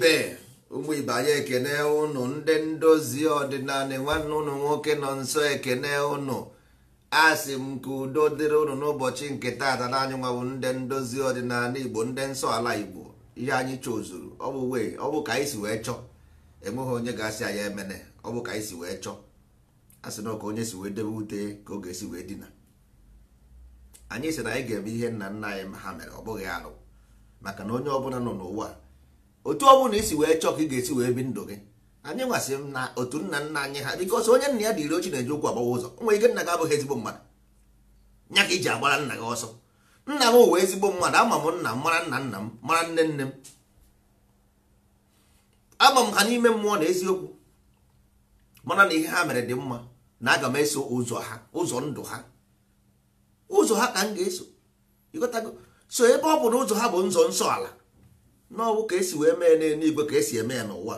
ibe ụmụ ibe anyị ekene ụnụ ndị ndozi ọdịnala nwanne ụnụ nwoke nọ nso ekene ụnụ asị m ka udo dịrị ụnụ n'ụbọchị nke taata na anyị nwabụ ndị ndozi ọdịnala igbo ndị nsọ ala igbo ihe anyị chọzuru ọ bụ wee ọ bụ ka anyị si wee chọọ enweghị onye ga-asị anyị emene ọ bụ ka anyị si wee chọọ asị na ka onye si wee debe ute ka oge si wee dina anyị sị na anyị ga-eme ihe nna nna anyị ha mere ọ bụghị alụ maka na onye ọbụla nọ n'ụwa otu ọ bụla isi wee chọọ ka ị ga-esi wee bi ndụ gị anyị nwasị m na otu nna nna anyị ha bikos onye nna ya dịrị ochi na-eji ụkwụ agbawa ụzọ nwa ike nna gị abụghị ezigbo mmadụ nya ka iji agbara nna gị ọsọ nna m wee ezigbo mmadụ ama m nna m mara nna nna m mara nne nne m ama m ha n'ime mmụọ na eziokwu mara na ihe ha mere dị mma na aga m eso ụzọ ha ụzọ ndụ ha ụzọ ha ka m ga-eso so ebe ọ bụ na ụzọ ha bụ nzọ nsọ ala n'ọwụ ka esi wee mee n'elu igwe ka esi eme ya n'ụwa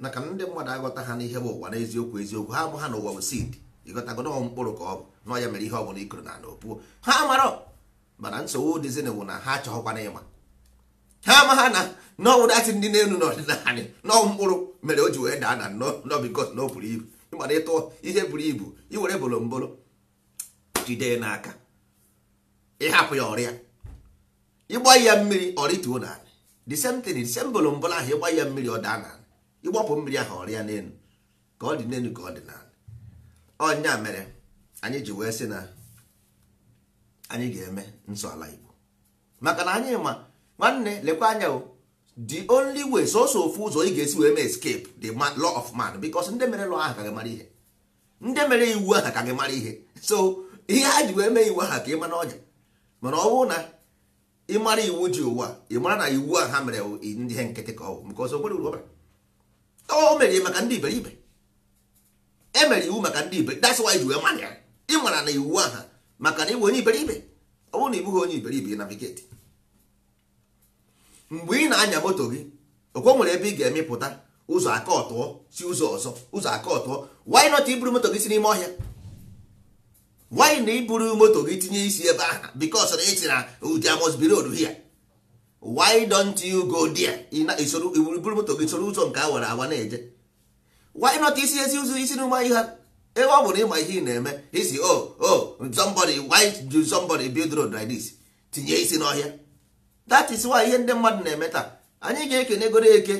na ka ndị mmadụ agọta ha n'ihe bụ ụwa n'eziokwu eziokwu ha bụ ha n'ụwa bụ sid ịghọtago na mkpụrụ ka ọ bụ na ya mere ihe ọ bụla ikoro na ala opuo ha mara mana nsogbu dịzin bụ na ha achọghọkwana ịma ha ama ha na n'ọwụ datị ndị n'elu n'ọdịnala n'ọwụ mkpụrụ mere o ji wee daa na nọbikọt na o buru ibu ịmara ịtụ ihe buru ibu iwere bolombolo jide n'aka ịhapụ ya ọrịa ịgba ya mmiri ọrịtuo n'ala the same thing the same bolo mbọla ahụ ịgba ya mmiri ọ daa na ịgbapụ mmiri ahụ ọrịa n'elu ka ọ dị n'elu ka ọ dị n'ala ọnya mere anyị ji wee sị na anyị ga-eme nsọ ala Igbo maka na anyị ma nwanne lekwa anya o the only way sọsọ ofu ụzọ ị ga-esi wee mee escape the law of man because ndị mere lọ ahụ ka gị mara ihe ndị mere iwu ahụ ka gị mara ihe so ihe ha ji wee mee iwu ahụ ka ị ma n'ọnya mana ọ bụrụ na ịmara iwu ji ụwa ịmara na iwu a ha mere ndị ihe nkịtị ka ọ bụ maka ọzọ nwere uru o mere maka ndị iberibe e mere iwu maka ndị ibe that's why ji mara ya ịmara na iwu aha maka na ịbụ onye iberibe ọ bụrụ na ị bụghị onye iberibe navigate mgbe ị na-anya moto gị okwe nwere ebe ị ga-emepụta ụzọ aka ọtụọ si ụzọ ọzọ ụzọ aka ọtụọ why not iburu moto gị si n'ime ọhịa why na iburu moto gị tinye isi ebe aha because na ịtịna oh, there must be road why don't you go there iburu moto gị soro ụzọ nke awara awa na-eje why not isi ezi ụzọ isi n'ụma ihe Ewe ọ bụrụ ịma ihe ị na-eme isi o oh, o oh, somebody why do somebody build road like this tinye isi n'ọhịa that is why ihe ndị mmadụ na-eme taa anyị ga-ekene goro eke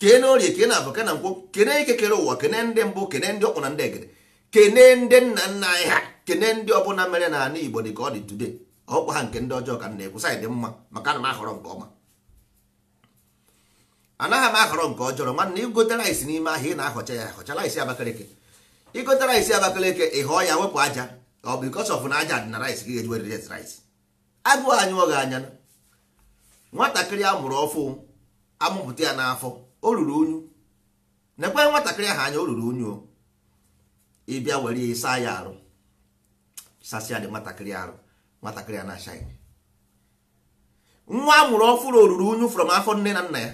kee na orie kee na abụ kena nkwụ kene eke kere ụwa kene ndị mbụ kene ndị ọkpụ na ndị egede kene ndị nna nna anyị ha kene ndị ọbụla mere na ana igbo dị ka ọ dị ọ ọkwa ha nke ndị ọjọọ ka na-ekwu dị mma maka na m ahọrọ nke ọma anaghị m ahọrọ nke ọjọọ nwanne igotara isi n'ime ahịa ị na-ahọcha ya ahọchala isi abakaleke ịgotara isi abakaleke ị họọ ya wepụ aja ọ bụ because of na aja dị na rice gị ga-eji werere rice agụụ anyị gị anya nwatakịrị a mụrụ ọfụ amụpụta ya n'afọ o ruru unyu nekwe nwatakịrị ahụ anya o ruru unyu o Ịbịa bịa were saa ya arụ sasịa dị nwatakịrị arụ nwatakịrị a na-ashaị nwa amụrụ ọfụrụ oruru unyu from afọ nne na nna ya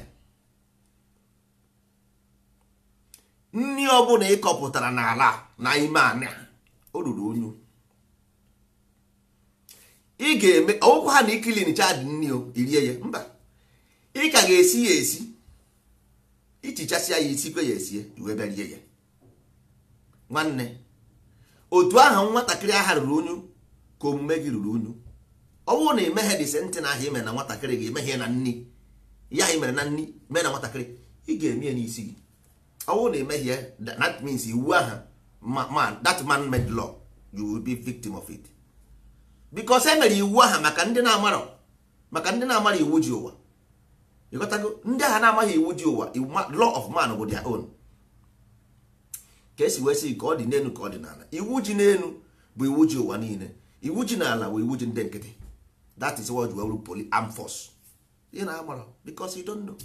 nri bụla ịkọpụtara n'ala na ime anị o ruru unyu ị ga-eme ọgwụkwọ ha na ikilin chad nri o irie ya mba ị ka ga-esi ya esi ichichasịa ya isikwe ya esie wee bịa rie ya nwanne otu ahụ nwatakịrị aha ruru unyu ka omume gị ruru unyu ọ bụrụ na emeghe dị sentị na ahụ imere na nwatakịrị gị emeghe na nni ya imere na nni mee na nwatakịrị ị ga-eme n'isi gị ọ bụrụ na emehie that means iwu aha man that man made law you will be victim of it because e iwu aha maka ndị na amarọ maka ndị na-amara iwu ji ụwa ịghọtago ndị agha na-amaghị iwu ji ụwa law of man bụ their own ka esi wee sị ka ọ dị n'elu ka ọ dị n'ala iwu ji n'elu bụ iwu ji ụwa niile iwu ji n'ala bụ iwu ji ndị nkịtị that is why you poli arm force ị na-agbara because you don't know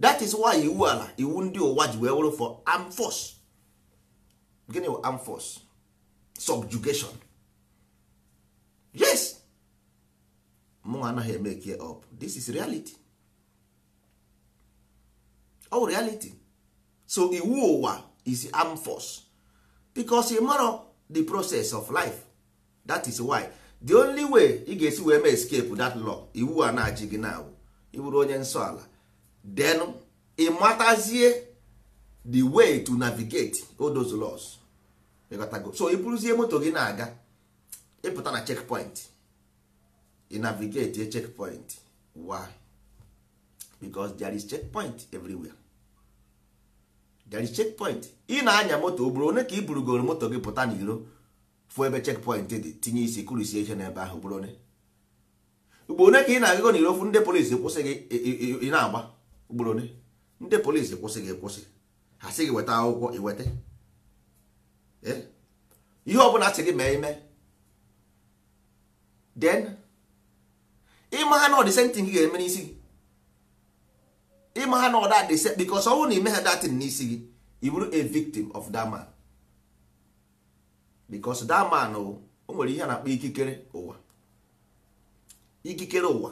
that is why iwu ala iwu ndị ụwa ji wee wụrụ for arm force gịnị wụ arm force subjugation yes mụ anaghị eme kie up this is reality all reality so iwu ụwa is arm force because ị the process of life that is why the only way ị ga-esi wee mee escape that law iwu a na-achị gị na iwuru onye nsọ ala then ị matazie the way to navigate all those laws so ị bụrụzie moto gị na-aga ịpụta na checkpoint ị navigate checkpoint why? because there is checkpoint everywhere there is checkpoint ị na-anya moto o one ka i burugoro moto gị pụta n'iro fụ ebe checkpoint dị tinye isi kụrisie ihe n'ebe ahụ bụrụ one. ugbo one ka ị na-agụgo n'iro fụ ndị polisi kwụsị gị ị na-agba ugboro one ndị polisi kwụsị gị kwụsị ha sị gị weta akwụkwọ iweta eh? ihe ọbụla sị gị mee ime den. ịma ha na ọdịsentin gị ga-eme n'isi gị ma ha na ọda dị se bikos ọnwụ na ime ha datin n'isi gị i a victim of that man bikos that o nwere ihe a na-akpọ ikikere ụwa ikikere ụwa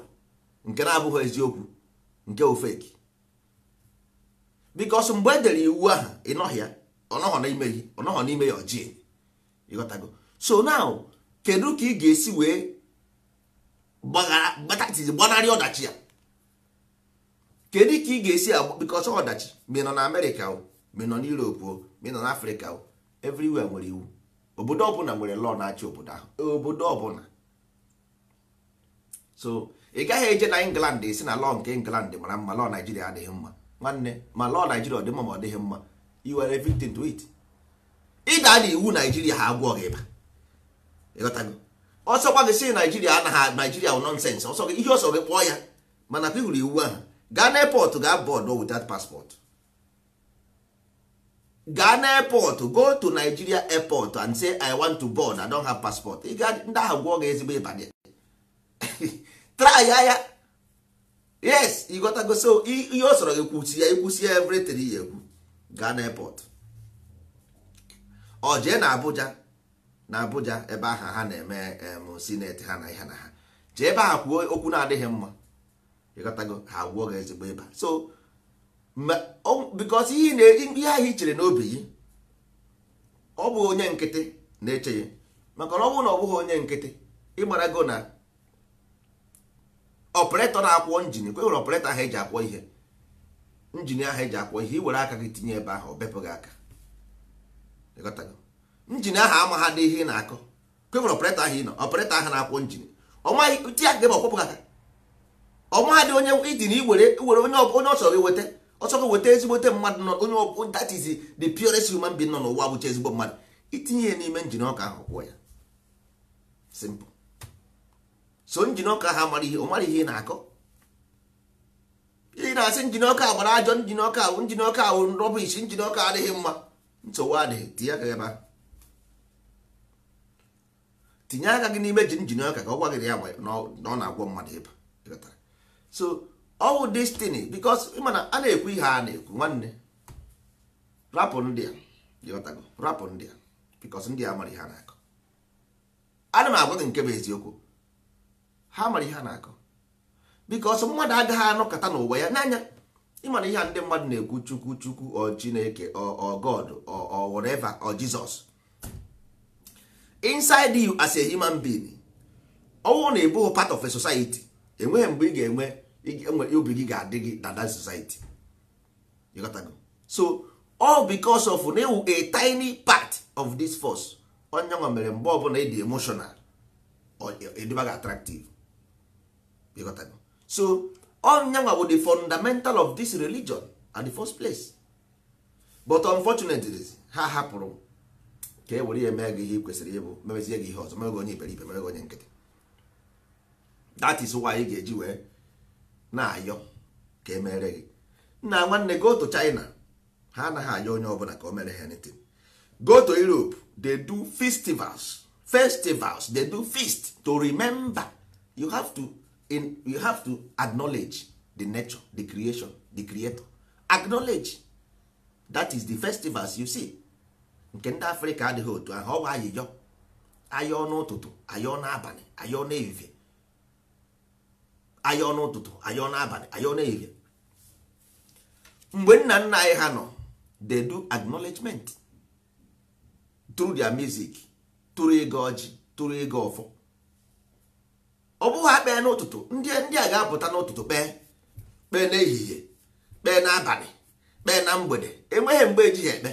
nke na-abụghị eziokwu nke ofeki bikos mgbe e dere iwu ahụ ịnọghị ya ọnọghọ n'ime ya ọnọghọ n'ime ịghọtago so now kedu ka ị ga-esi wee gbanarị ọdachi ya kedu ka ị ga-esi agba because ọdachi ma nọ na amerịka o nọ na europe o ma nọ na afrịka o everywhere nwere iwu obodo ọbụla nwere lọọ na-achị obodo ahụ obodo ọbụla so ị gaghị eje na england esi na lọọ nke england mara mma lọọ naijiria adịghị mma nwanne ma lọọ naijiria ọ dị mma ma ọ dịghị mma Iwere are to it ịda na iwu naijiria ha agwọ gị ịba ịghọtago ọsọ gwa si naijiria anaghị naijiria wụ nọnsens ọsọ gị ihe ọsọ gị kpọọ ya mana pị hụrụ iwu ahụ gaa n'airport gaa board without passport Ghana airport go to nigeria airport and say i want to board i don't have passport ị ga ndị ahụ gwụọ gị ezigbo ịbanye try ya yes ịghọtago so ihe o soro ya kwuchi ya ikwusi everything ya ekwu Ghana airport ọ jee na abuja na abuja ebe agha ha na-eme senate ha na ihe na ha jee ebe agha kwuo okwu na-adịghị mma ịghọtago ha ah, gwụọ gị ezigbo ịba so bikos ihe na-egbu ihe ahụ i chere n'obi gị ọ bụghị onye nkịtị na-eche ya maka na ọ bụrụ na ọ bụghị onye nkịtị ịgbara go na ọpụretọ na-akwọ njin kwe nwere ọpụretọ ahụ eji akwọ ihe njin ahụ eji akwọ ihe iwere aka gị tinye ebe ahụ ọ bepụ gị aka njin ahụ ama ha ihe ị na-akọ kwe nwere ọpụretọ ahụ ị nọ ọpụretọ ahụ na-akwọ njin ọ maghị tinye aka gị ma ọ aka ọmadị onye idin iwere onye ọ chọrọ iweta ọ chọrọ weta ezigbote mmadụ nọ onye ọbụ that is the purest human being nọ n'ụwa bụcha ezigbo mmadụ itinye ya n'ime njin ọka ahụ kwụọ ya simple so njin ọka ha mara ihe ọ mara ihe ị na-akọ ị na-asị njin ọka gbara ajọ njin ọka ahụ njin ọka ahụ rọbish njin ọka adịghị mma nsogbu adịghị tinye aka ebe ahụ tinye aka gị n'ime ji njin ọka ka ọ gwa gị ya na ọ na-agwọ mmadụ ịba so ọwụ destiny because mana a na-ekwu ihe a na-ekwu nwanne rapụ ndị a dịghọtago rapụ ndị a because ndị a mara ihe a na-akọ ana m agwa gị nke bụ eziokwu ha mara ihe a na-akọ because mmadụ agaghị anọkọta n'ụwa ya n'anya ịmana ihe a ndị mmadụ na-ekwu chukwu chukwu ọ chineke ọ god ọ whatever ọ jizọs inside you as a human being ọwụ na-ebughị part of a society enweghị mgbe ị ga-enwe E obi gị ga-adị gị na that society you got to go so all because of na ewu a tiny part of this force onye nwa mere mgbe ọbụla ịdị emotional ịdịba gị attractive you got to go so onye nwa bụ the fundamental of this religion at the first place but unfortunately ha hapụrụ ka e were ya mee gị ihe ị kwesịrị ịbụ memezie gị ihe ọzọ mere gị onye iberibe mere gị onye nkịtị that is why ị ga-eji wee na-ayọ ka emere gị nna nwanne go to china ha anaghị ayọ onye ọbụla ka o mere ha anything go to europe dey do festivals festivals dey do feast to remember you have to in, you have to acknowledge the nature the creation the creator acknowledge that is the festivals you see nke ndị africa adịghị otu ahụ ọ bụ ayịyọ ayọ n'ụtụtụ ayọ n'abalị ayọ n'ehihie anyị n'ụtụtụ ụtụtụ n'abalị ọnụ n'ehihie mgbe nna nna anyị ha nọ they do acknowledgement through their music tụrụ ego ọjị tụrụ ego ọfọ ọ bụghị ha kpee n'ụtụtụ ndị ndị a ga-apụta n'ụtụtụ kpee kpee n'ehihie kpee n'abalị kpee na mgbede enweghị mgbe ejighị ekpe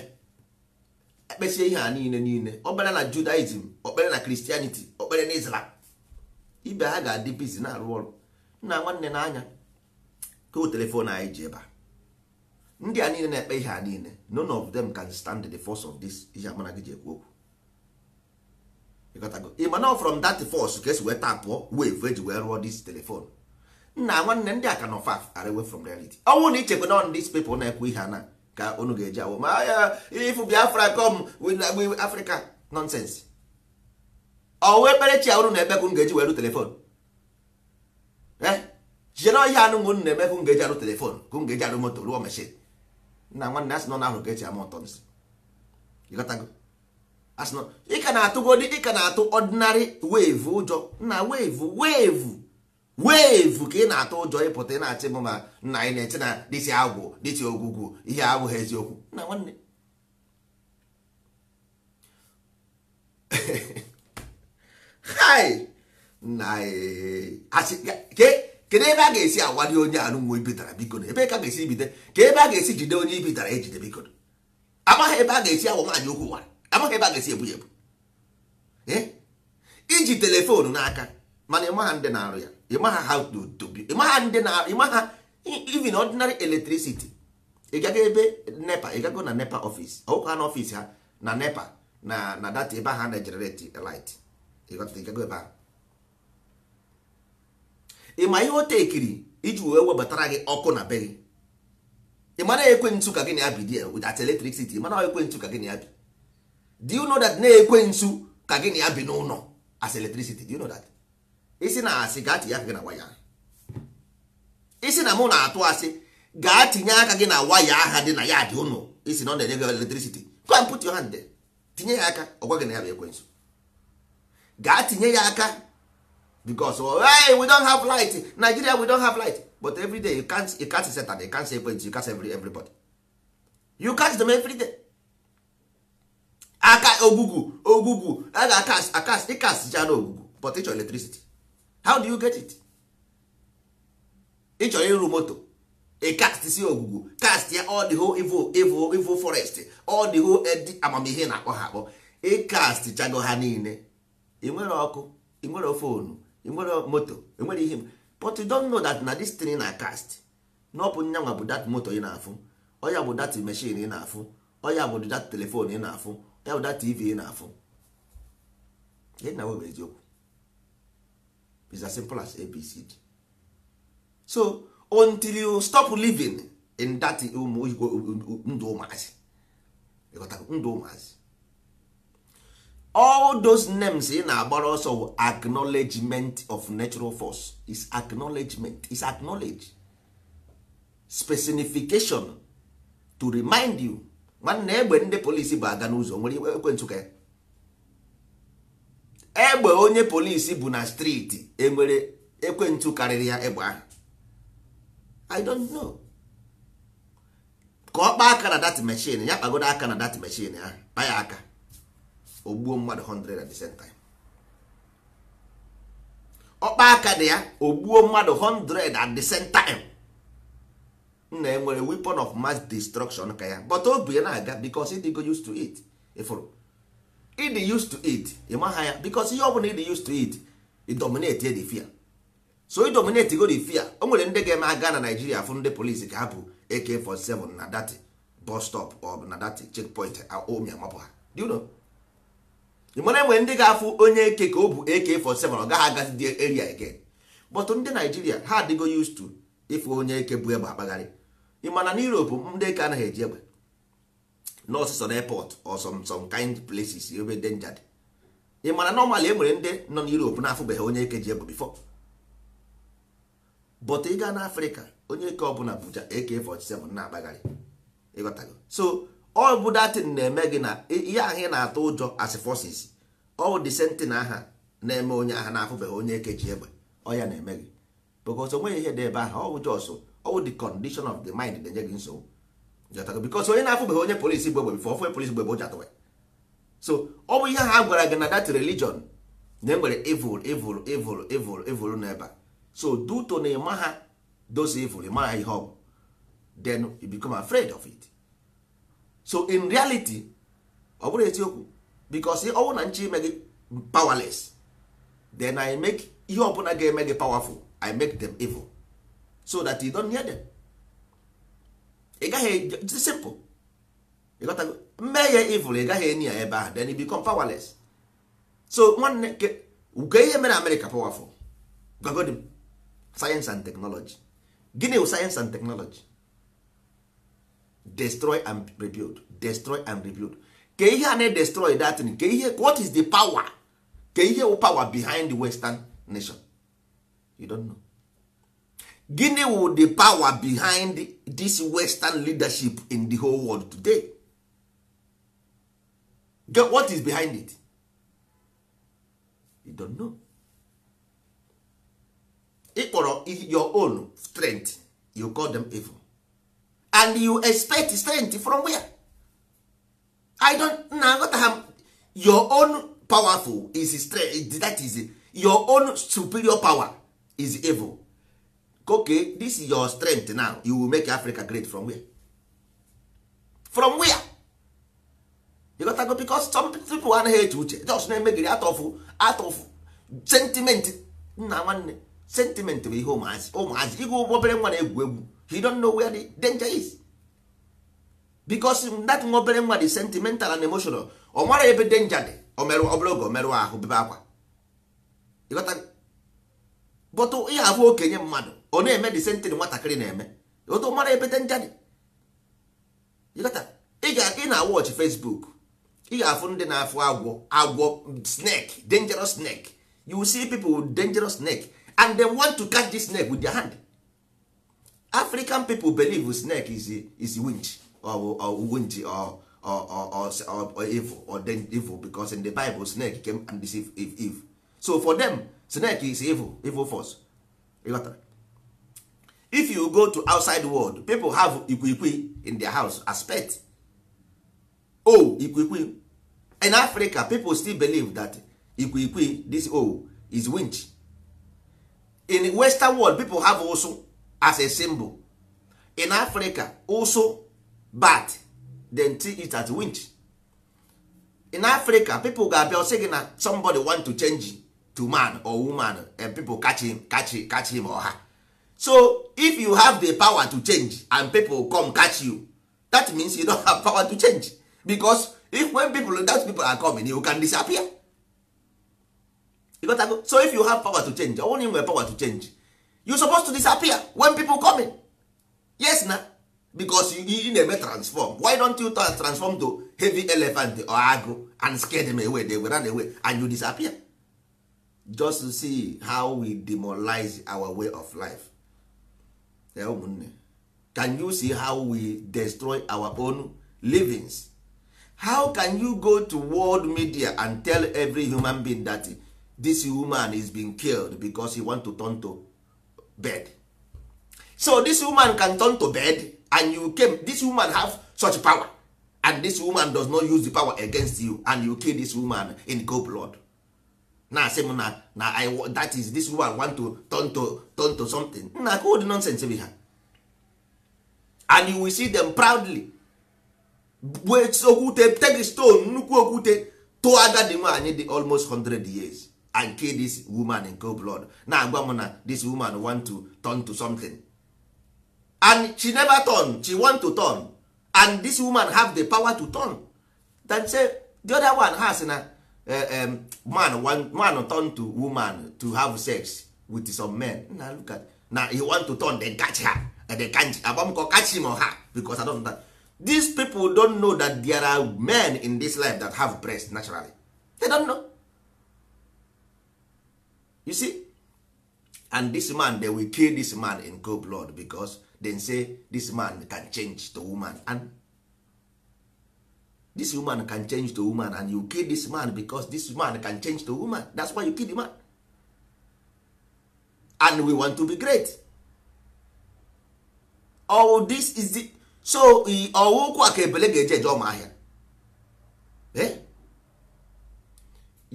ekpesie ihe a niile niile okpere na judaism okpere na christianity okpere na islam ibe ha ga-adị bizi na-arụ ọrụ nna nwanne na-anya kụ telefon anyị ji ebe a ndị a niile na-ekpe ihe a niile none of them can stand the force of this ihe amana gị ji ekwu okwu nọ from that force ka esi wee tapụọ wave eji wee rụọ this telefon nna nwanne ndị a ka nọ far away from reality ọnwụ na ichekwa na these people na-ekwu ihe a na ka unu ga-eji awụ ma ya ifu biafra com africa nonsense ọ wee kpere chi ahụrụ na ekpe ka unu ga-eji were telefon jidere ọhịa anụnwụ nna eme hụ ngeji arụ telefon ka m ga-eji arụ moto rụọ meshin nna nwanne asị nọ n'ahụ ga-eji ama ụtọ nsị ịka na-atụgodi ịka na-atụ ọdịnarị weevu ụjọ na weevu weevu weevu ka ị na-atụ ụjọ ịpụta ị na-achị m ma nna anyị na-eche na dịtị agwụ dịtị ogwugwu ihe abụghị eziokwu nna nwanne hai na eh, kedu ebe a ga-esi awadị onye anụ nwa ibidara biko na ebe ka ga-esi ibide ka ebe a ga-esi jide onye ibidara ejide biko amaghị ebe a ga-esi awa nwaanyị okwu nwa amaghị ebe a ga-esi ebu ya ebu eh? iji telefonu n'aka mana ịmaha ndị na-arụ ya ịmaha ha ịmaha ndị na-arụ ịmaha even ordinary electricity ịgago ebe nepa ịgago na nepa ọfis ọkụ ha na ọfis ha na nepa na na data ebe ha na-ejenereti light ịgago ebe ahụ ịma ihe o tekiri iji wee webatara gị ọkụ na be gị ị mana ekwentụ ka gịnị na ya bi dị with eletrik siti mana ekwentụ ka gị na ya bi Di you know that na-ekwentụ ka gịnị na ya bi n'ụlọ as eletrik siti you know that isi na asị gaa tinye aka gị na waya isi na mụ na-atụ asị gaa tinye aka gị na waya aha dị na ya dị ụlọ isi na ọ na-enye gị electricity go and put your hand there tinye ya aka ọgwa gị na ya bụ ekwentụ gaa tinye ya aka because oh, hey, we don have light nigeria we don have light but every day you can't you can't set you can't say you can't save everybody you can't them every day aka ogugu ogugu a ga akas akas ịkas ja na ogugu but ịchọ electricity how do you get it ịchọ ịrụ moto a cast si ogugu cast ya all the whole evil evil evil forest all the whole edi eh, amamihe na akpọ ha akpọ ịkast chago ha niile ị nwere ọkụ ị fonu enwere moto enwere ihe but you don't know that na this thing na cast na ọ bụ nyanwa bụ that moto ị na-afụ ọya bụ that machine ị na-afụ ọya bụ that telephone ị na-afụ ọya bụ that tv ị na-afụ gịnị na webụ eziokwu is as simple as abcd so until you stop living in that um, um, um, ndụ ụmụazị ndụ ụmụazị all those names ị na-agbara ọsọ acknowledgement of natural force is acknowledgement is acknowledge specification to remind you nwanne egbe ndị polisi bụ aga n'ụzọ nwere ekwentụ ka egbe onye polisi bụ na striti enwere ekwentụ karịrị ya egbe ahụ i don't know ka ọ kpaa aka na dat mechin ya kpagodo aka na dat mechin ahụ kpa ya aka ogbuo mmadụ 100 at the same time ọkpa aka dị ya ogbuo mmadụ 100 at the same time nna ya nwere weapon of mass destruction ka ya but obi ya na-aga because go used to it ịfụrụ ịdị used to it maha ya because ihe ọbụla ịdị used to it idominate the fear so idominate go the fear o nwere ndị ga-eme aga na Nigeria fụ ndị polisi ka hapụ AK47 na dati bus stop ọ bụ na dati checkpoint omi amapụ ha do you know mana enwere ndị ga-afụ onye eke ka ọ bụ AK47 ọ gaghị agazi dị area again but ndị Naijiria ha adịgo used to ịfụ onye eke bụ egbe akpagharị ịmana na Europe ndị eke anaghị eji egbe n'ọsụsọ na airport or some kind places ebe danger dị ịmana normally e nwere ndị nọ na Europe na-afụbeghị onye eke ji egbe bifọ. but ị gaa n'Afrịka onye eke ọbụla bụja AK47 na-akpagharị so all bụ datin na-eme gị na ihe ahụ ị na-atụ ụjọ as forces all the sentin aha na-eme onye aha na-afụbeghị onye ekeji egbe ọ ya na-eme gị because nweghị ihe dị ebe aha ọ bụ jọsụ ọ the condition of the mind na-enye gị nsogbu because onye na-afụbeghị onye polisi gbe egbe before ofe polisi gbe egbe ụjọ atụwe so ọ bụ ihe ha gwara gị na that religion na enwere evil evil evil evil evil n'ebe so duto na ịma ha dozie evil ịmara ha ihe ọ bụ then you become of it so in reality ọ bụrụ eziokwu because ọ bụrụ na nchi ime gị powerless then i make ihe ọbụla ga-eme gị powerful i make them evil so that you don't hear them ị gaghị simple ịghọtago mee ya evil ị gaghị enyi ya ebe ahụ then you become powerless so nwanne ke ihe mere amerịka powerful gwagodi m sayensị and technology gịnị bụ sayensị and teknọlọji destroy and rebuild destroy and rebuild ke ihe a na-edestroy datin ke ihe what is the power ke ihe power behind the western nation you don't know gini wụ the power behind this western leadership in the whole world today Get what is behind it you don't know ịkpọrọ your own strength you call them evil and you expect strength from where i don't na am your own powerful is strength that is your own superior power is evil okay this is your strength now you will make africa great from where from where you got to go because some people anaghị eche uche just na-emegiri atọfụ of sentiment nna nwanne sentiment bụ ihe ụmụazị ụmụazị ịgụ obere nwa na-egwu egwu he don't know where the danger is because that obere nwa dị sentimental and emotional ọ mara ebe danger dị ọbụla oge omerụ ahụ bebe akwa bọtụ ihe abụ okenye mmadụ ọ na-eme dị sentin nwatakịrị na-eme otu mara ebe denger dị ị ga-aga ị na watch Facebook ị ga-afụ ndị na-afụ agwọ agwọ snake dangerous snake you see people with dangerous snake and they want to catch this snake with their hand african people believe snake is is winch or, or or, or, or, or, evil or then evil because in the bible snake came and deceive eve, eve. so for them snake is evil evil force if you go to outside world people have ikwikwi in their house as pet oh ikwikwi in africa people still believe that ikwikwi this oh is winch in western world people have also as a symbol in africa also bat then see it as winch in africa people ga-abịa sị gị na somebody want to change to man or woman and people catch him catch him catch him or her so if you have the power to change and people come catch you that means you don't have power to change because if when people that people are coming you can disappear so if you have power to change only nwere power to change you supposed to disappear when people come in yes na because you na-eme transform why don't you transform to heavy elephant or agro and scare them away they were run away and you disappear just to see how we demoralize our way of life yeah, ụmụnne can you see how we destroy our own livings how can you go to world media and tell every human being that this human is being killed because he want to turn to bed so this woman can turn to bed and you came this woman have such power and this woman does not use the power against you and you kill this woman in cold blood na asị na na I that is this woman want to turn to turn to something na good nonsense bi ha and you will see them proudly gbuo okwute take stone nnukwu okwute tụọ agadi nwaanyị dị almost 100 years and kill this woman in cold blood na-agwa m na this woman want to turn to something and she never turn she want to turn and this woman have the power to turn then say the other one has na uh, um, man want man turn to woman to have sex with some men na look at na he want to turn then catch her and eh, they can't abamko catch him or her because i don't know that these people don't know that there are men in this life that have breast naturally they don't know you see and this man they will kill this man in cold blood because dem say this man can change to woman and this woman can change to woman and you kill this man because this man can change to woman that's why you kill the man and we want to be great all oh, this is the so ọwụ oh, ụkwụ a ka ebele ga-eje eje ọma eh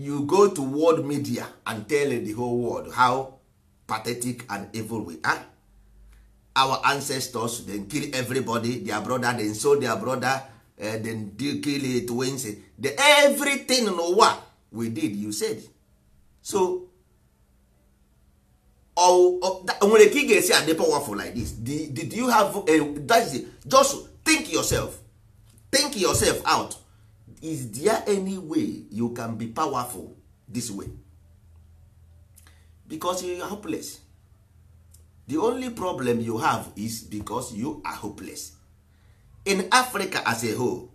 you go to world media and tell the whole world how pathetic and evil we are our ancestors dem kill everybody their brother dem sold their brother uh, eh, then kill twins the everything n'ụwa we did you said so nwere ka ị ga-esi adị powerful like this did, did you have a, eh, that it. just think yourself think yourself out is there any way you can be powerful this way because you are hopeless the only problem you have is because you are hopeless in africa as a whole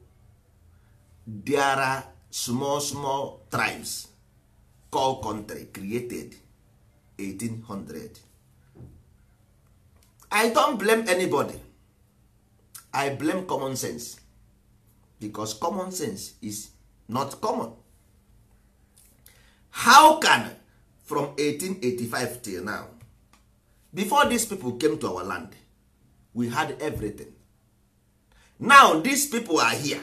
there are small small tribes called country created 1800 i don't blame anybody i blame common sense because common sense is not common how can from 1885 till now before these people came to our land we had everything now these people are here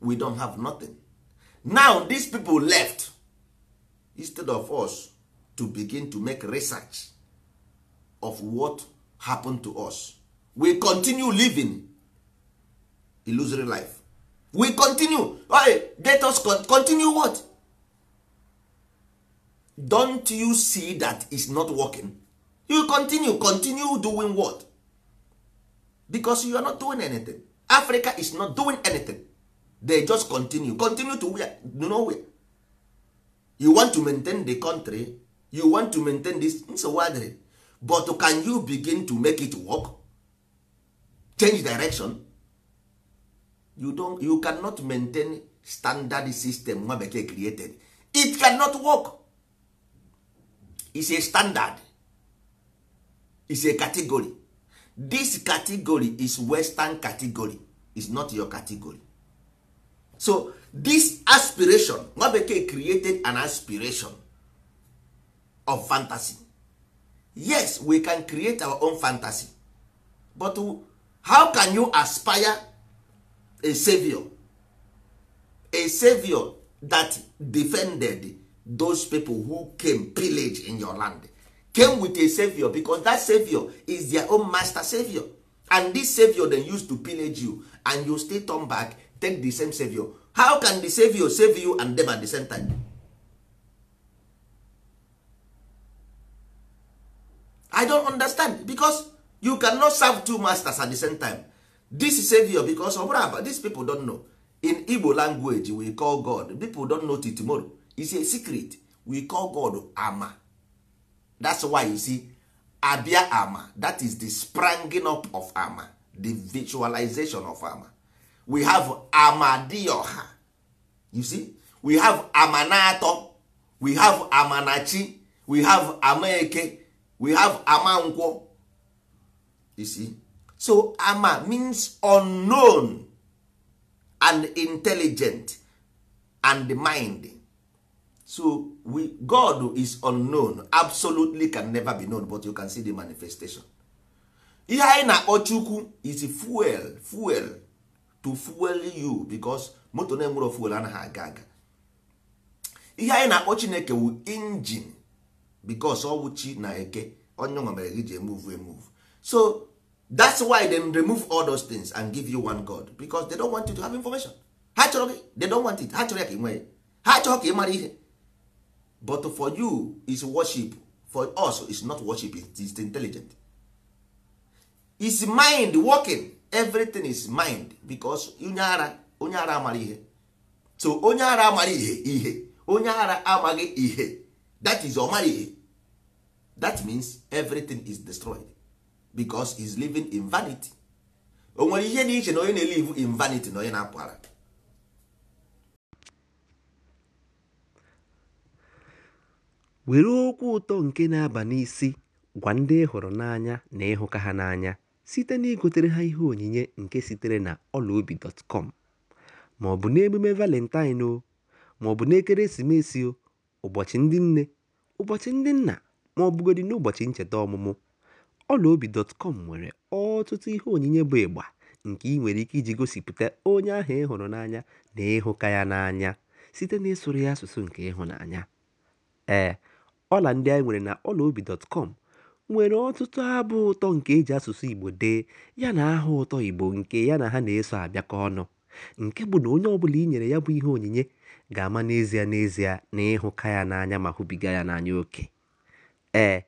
we don have nothing now these people left instead of us to begin to make research of what happened to us we continue living illusory life we continue okay, let us continue what don't you see that is not working you continue continue doing what because you are not doing anything africa is not doing anything they just continue continue to where nowhere you want to maintain the country you want to maintain this nsogbu but can you begin to make it work change direction you don't you cannot maintain standard system nwa bekee created it cannot work is a standard is a category this category is western category is not your category so this aspiration nwa bekee created an aspiration of fantasy yes we can create our own fantasy but how can you aspire a savior a savior that defended those people who came pillage in your land came with a savior because that savior is their own master savior and this savior dem use to pillage you and you still turn back take the same savior how can the savior save you and them at the same time i don't understand because you cannot serve two masters at the same time this savior because ọ this people don't know in igbo language we call god people don't know till tomorrow is a secret we call god ama that's why you see abia ama that is the spranging up of ama the visualization of ama we have amadioha you see we have amanato we have amanachi we have amaeke we have amankwọ you see so ama means unknown and intelligent and mind so we, god is unknown absolutely can never be known but you can see the manifestation ihe anyị na-akpọ chukwu is fuel fuel to fuel you because moto na-enwero fuel anaghị aga aga ihe anyị na-akpọ chineke wu injin because ọwụ na eke onye nwa mere gị ji emuvu emuvu so that's why they remove all those things and give you one god because they don't want you to have information ha chọrọ gị they don't want it ha chọrọ ya ka ị nwee ha chọrọ ka ị mara ihe but for you is worship for us is not worship is intelligent is mind working everything is mind because onye ara onye ara amara ihe so onye ara amara ihe ihe onye ara amaghị ihe that is ọmara ihe that means everything is destroyed because is living in vanity o nwere ihe dị iche na onye na in vanity na onye na-apụ were okwu ụtọ nke na-aba n'isi gwa ndị hụrụ n'anya na ịhụka ha n'anya site na igotere ha ihe onyinye nke sitere na ọlaobi.com ma ọ bụ n'emume valentine o ma ọ bụ n'ekeresimesi o ụbọchị ndị nne ụbọchị ndị nna ma ọ n'ụbọchị ncheta ọmụmụ Ọlaobi.com nwere ọtụtụ ihe onyinye bụ ịgba nke ị nwere ike iji gosipụta onye ahụ ị hụrụ n'anya na ịhụka ya n'anya site n'ịsụrụ ya asụsụ nke ịhụnanya. Ee, ọla ndị anyị nwere na Ọlaobi.com nwere ọtụtụ abụ ụtọ nke e ji asụsụ Igbo dee yana aha ụtọ Igbo nke ya na ha na-eso abịakọ ọnụ, nke bụ na onye ọbụla i nyere ya bụ ihe onyinye ga-ama n'ezie n'ezie na ịhụka ya n'anya ma hụbiga ya n'anya oke. Ee.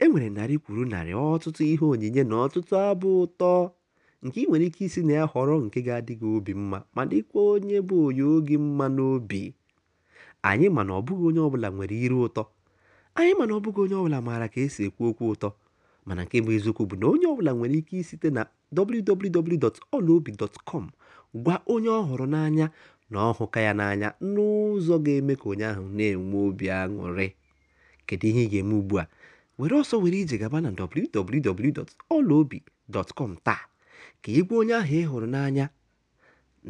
E nwere narị kwuru narị ọtụtụ ihe onyinye na ọtụtụ abụ ụtọ nke ị nwere ike isi na ya họrọ nke ga-adị gị obi mma ma dịkwa onye bụ onye oge mma n'obi anyị ma na ọ bụghị onye ọbụla nwere iru ụtọ anyị ma na ọ bụghị onye ọbụla maara ka esi ekwu okwu ụtọ mana nke bụ eziokwu bụ na onye ọbụla nwere ike isite na www.olaobi.com gwa onye ọ hụrụ n'anya na ọhụka ya n'anya n'ụzọ ga-eme ka onye ahụ na-enwe obi aṅụrị kedu ihe ị ga-eme ugbu a were ọsọ were ije gaba na www.olaobi.com taa ka igwe onye ahụ ị hụrụ n'anya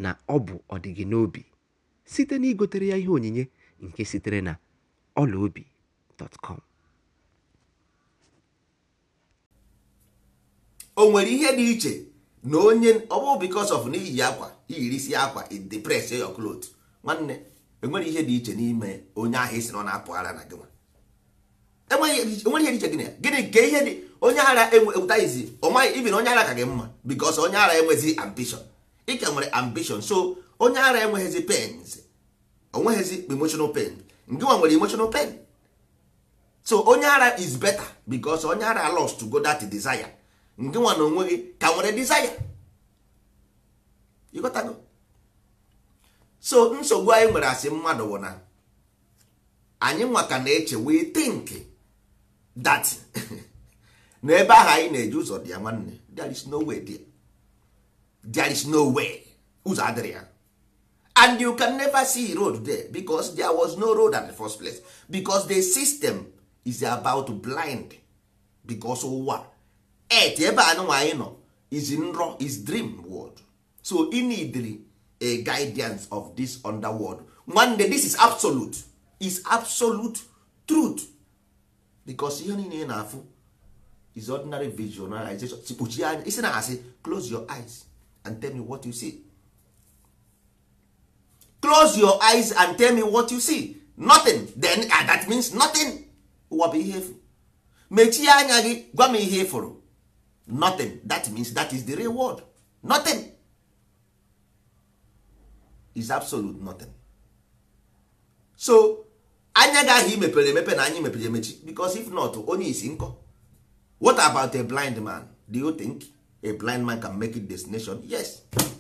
na ọ bụ ọdịgị n'obi site na igotere ya ihe onyinye nke sitere na olaobi.com o nwere ihe dị iche na onye ọ bụ because of n'iyi akwa iyirisi akwa it depress your nwanne enwere ihe dị iche n'ime onye ahụ isi na ọ na-apụ ara na gịnwa enweghị ihe dị iche gịnị ya gịnị nke ihe dị onye ara ewetaizi ọ maghị ibi na onye ara ka gị mma bikos onye ara enweghịzi ambition ịka nwere ambition so onye ara enweghịzi pens onweghịzi emotional pen nke nwa nwere emotional pen so onye ara is better bikos onye ara lost to go that desire nke nwa na onweghị ka nwere desire ịghọtago so nsogbu anyị nwere asị mmadụ bụ na anyị nwa ka na-eche wee tinki that na ebe ahụ anyị na-eji ụzọ dị ya nwanne there is no way there there is no way ụzọ adịrị ya and you can never see road there because there was no road at the first place because the system is about blind because ụwa et ebe anụnwa anyị nọ is nrọ is dream world so e need a guidance of this underworld nwanne this is absolute is absolute truth because ihe niile ị na-afụ is ordinary visualization kpuchie anya isi na asị close your eyes and tell me what you see close your eyes and tell me what you see nothing then uh, that means nothing ụwa bụ ihe efu mechie anya gị gwa m ihe ịfụrụ nothing that means that is the real world nothing is absolute nothing so anya ahụ mepere emepe na anyị mepere emechi because if not onye isi nkọ what about a blind man do you think a blind man can make it destination yes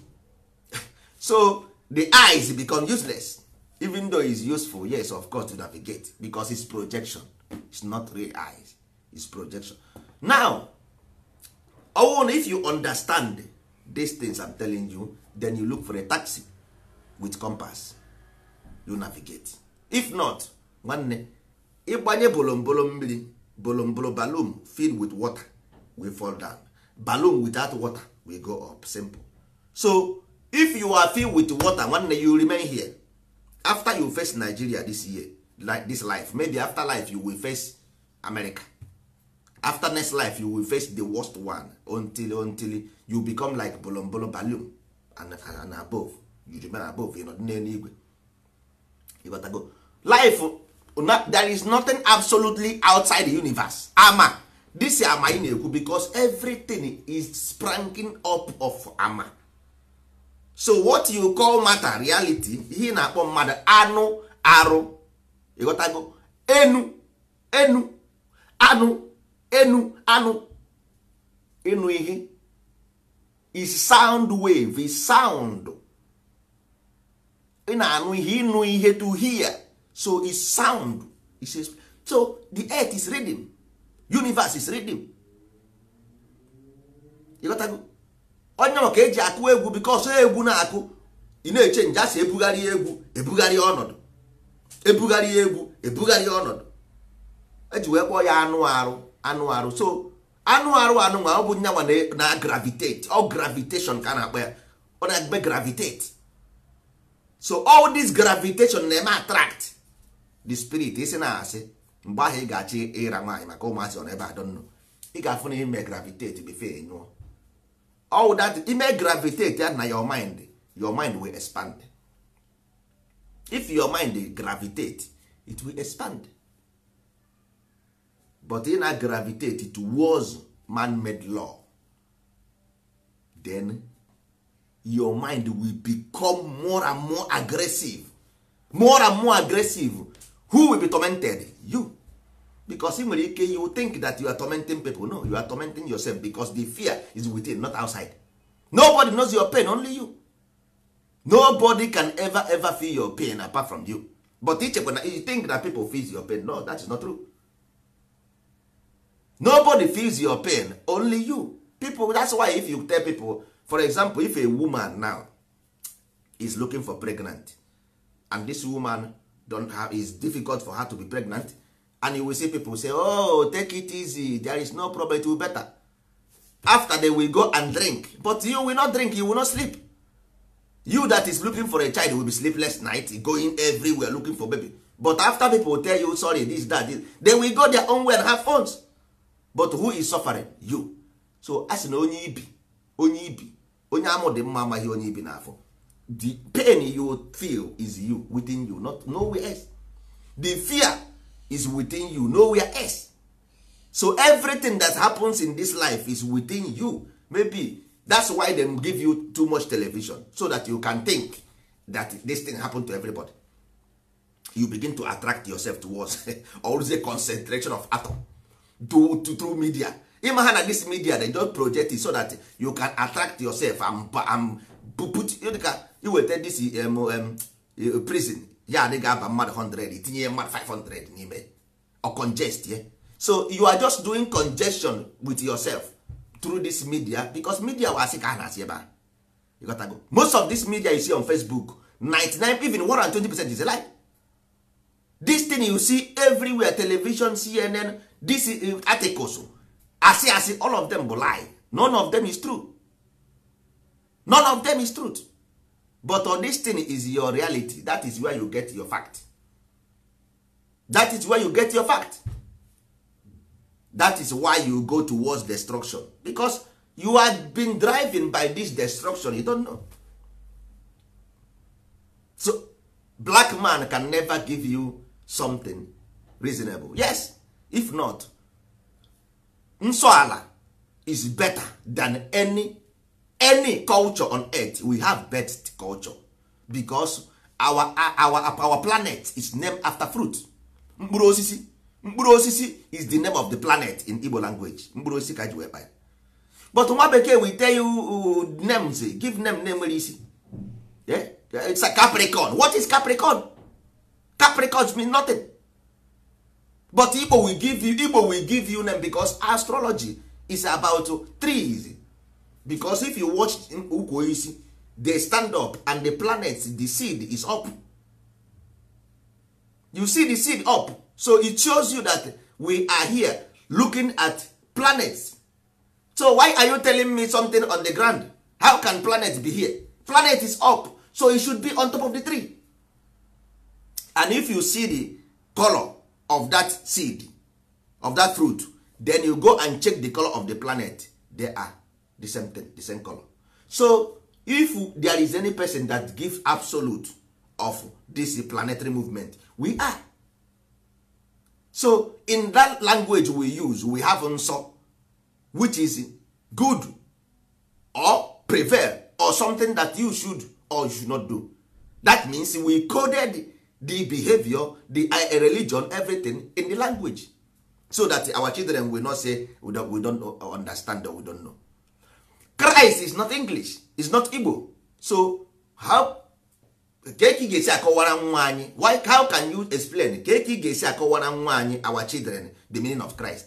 so the eyes become useless even though it's useful yes of course to navigate because it's projection it's not real eyes it's projection now owon if you understand these things i'm telling you then you look for a taxi with compass you navigate if not nwanne ịgbanye bolombolo mmiri bolombolo balloon filled with water we fall down balloon without water will go up simple so if you are filled with water nwanne you remain here after you face nigeria this year like this life maybe after life you will face america after next life you will face the worst one until until you become like bolombolo balloon and, and above you remain above you know n'eluigwe life there is nothing absolutely outside the universe ama this ama ị na-ekwu because everything is spranking up of ama so what you call matter reality ihe na-akpọ mmadụ anụ arụ ịghọtago enu enu anụ enu anụ ịnụ ihe is sound wave is sound ị na-anụ ihe ịnụ ihe to hear so is sound is a, so the earth is rhythm universe is rhythm go onye ma ka eji akụ egwu bikos egwu na-akụ ị na-eche nje asị ebugharị egwu ebugharị ọnọdụ ebugharị egwu ebugharị ọnọdụ eji wee kpọọ ya anụ arụ anụ arụ so anụ arụ anụ nwa ọ bụ nyanwa na gravitate ọ gravitation ka a na-akpọ ya ọ na-eme gravitate so all this gravitation na-eme attract the spirit isi na asị mgbe ahụ ị ga-achị ịra nwaanyị maka ụmụazị ọ n'ebe adọ nnụ ị ga-afụ na ime gravitate before nyụọ all ime gravitate na your mind your mind will expand if your mind gravitate it will expand but ị na gravitate towards man-made law then your mind will become more and more aggressive more and more aggressive who will be tormented you because I nwere ike you think that you are tormenting people no you are tormenting yourself because the fear is within not outside nobody knows your pain only you nobody can ever ever feel your pain apart from you but ichekwa na you think that people feels your pain no that is not true nobody feels your pain only you people that's why if you tell people for example if a woman now is looking for pregnant and this woman don't have is difficult for her to be pregnant and you will see people say oh take it easy there is no problem it will better after they will go and drink but you will not drink you will not sleep you that is looking for a child will be sleepless night going everywhere looking for baby but after people tell you sorry this that this, they will go their own way and have phones but who is suffering you so as na onye ibi onye ibi onye amụ dị mma amaghị onye ibi n'afọ the pain you feel is you within you not nowhere else the fear is within you nowhere else so everything that happens in this life is within you maybe that's why them give you too much television so that you can think that this thing happen to everybody you begin to attract yourself towards always a concentration of atom to, through media ịma ha na this media they just project it so that you can attract yourself and, and dịka iweta dcmm prison ya adịghị aba mmadụ 100 tinye mmadụ 500 n'ime or congest ye so you are just doing congestion with yourself through this media because media wasị ka a na-asị ebe a most of this media you see on facebook 99 even 120 percent is a lie this thing you see everywhere television cnn this eh, articles asị asị all of them bụ lie none of them is true none of them is truth but all this thing is your reality that is where you get your fact that is where you get your fact that is why you go towards destruction because you have been driven by this destruction you don't know so black man can never give you something reasonable yes if not nsọala is better than any any culture on earth we have best culture because our, our, our planet is named after fruit mkpụrụ osisi mkpụrụ osisi is the name of the planet in Igbo language mkpụrụ osisi ka e ji wee kpaa but nwa bekee we tell you uh, names eh, give name name nwere isi it's a capricorn what is capricorn capricorn mean nothing but Igbo will give you Igbo will give you name because astrology is about trees because if you watch ukwu oisi dey stand up and the planet the seed is up you see the seed up so it shows you that we are here looking at planets so why are you telling me something on the ground how can planet be here planet is up so it should be on top of the tree and if you see the color of that seed of that fruit then you go and check the color of the planet they are the same thing the same color so if there is any person that gives absolute of this planetary movement we are so in that language we use we have nsọ which is good or prevail or something that you should or you should not do that means we coded the behavior the eh, religion everything in the language so that our children will not say we don't, we don't understand or we don't know ice is not english is not igbo so how ka ị ga-esi akọwara nwa anyị why how can you explain ka ị ga-esi akọwara nwa anyị our children the meaning of christ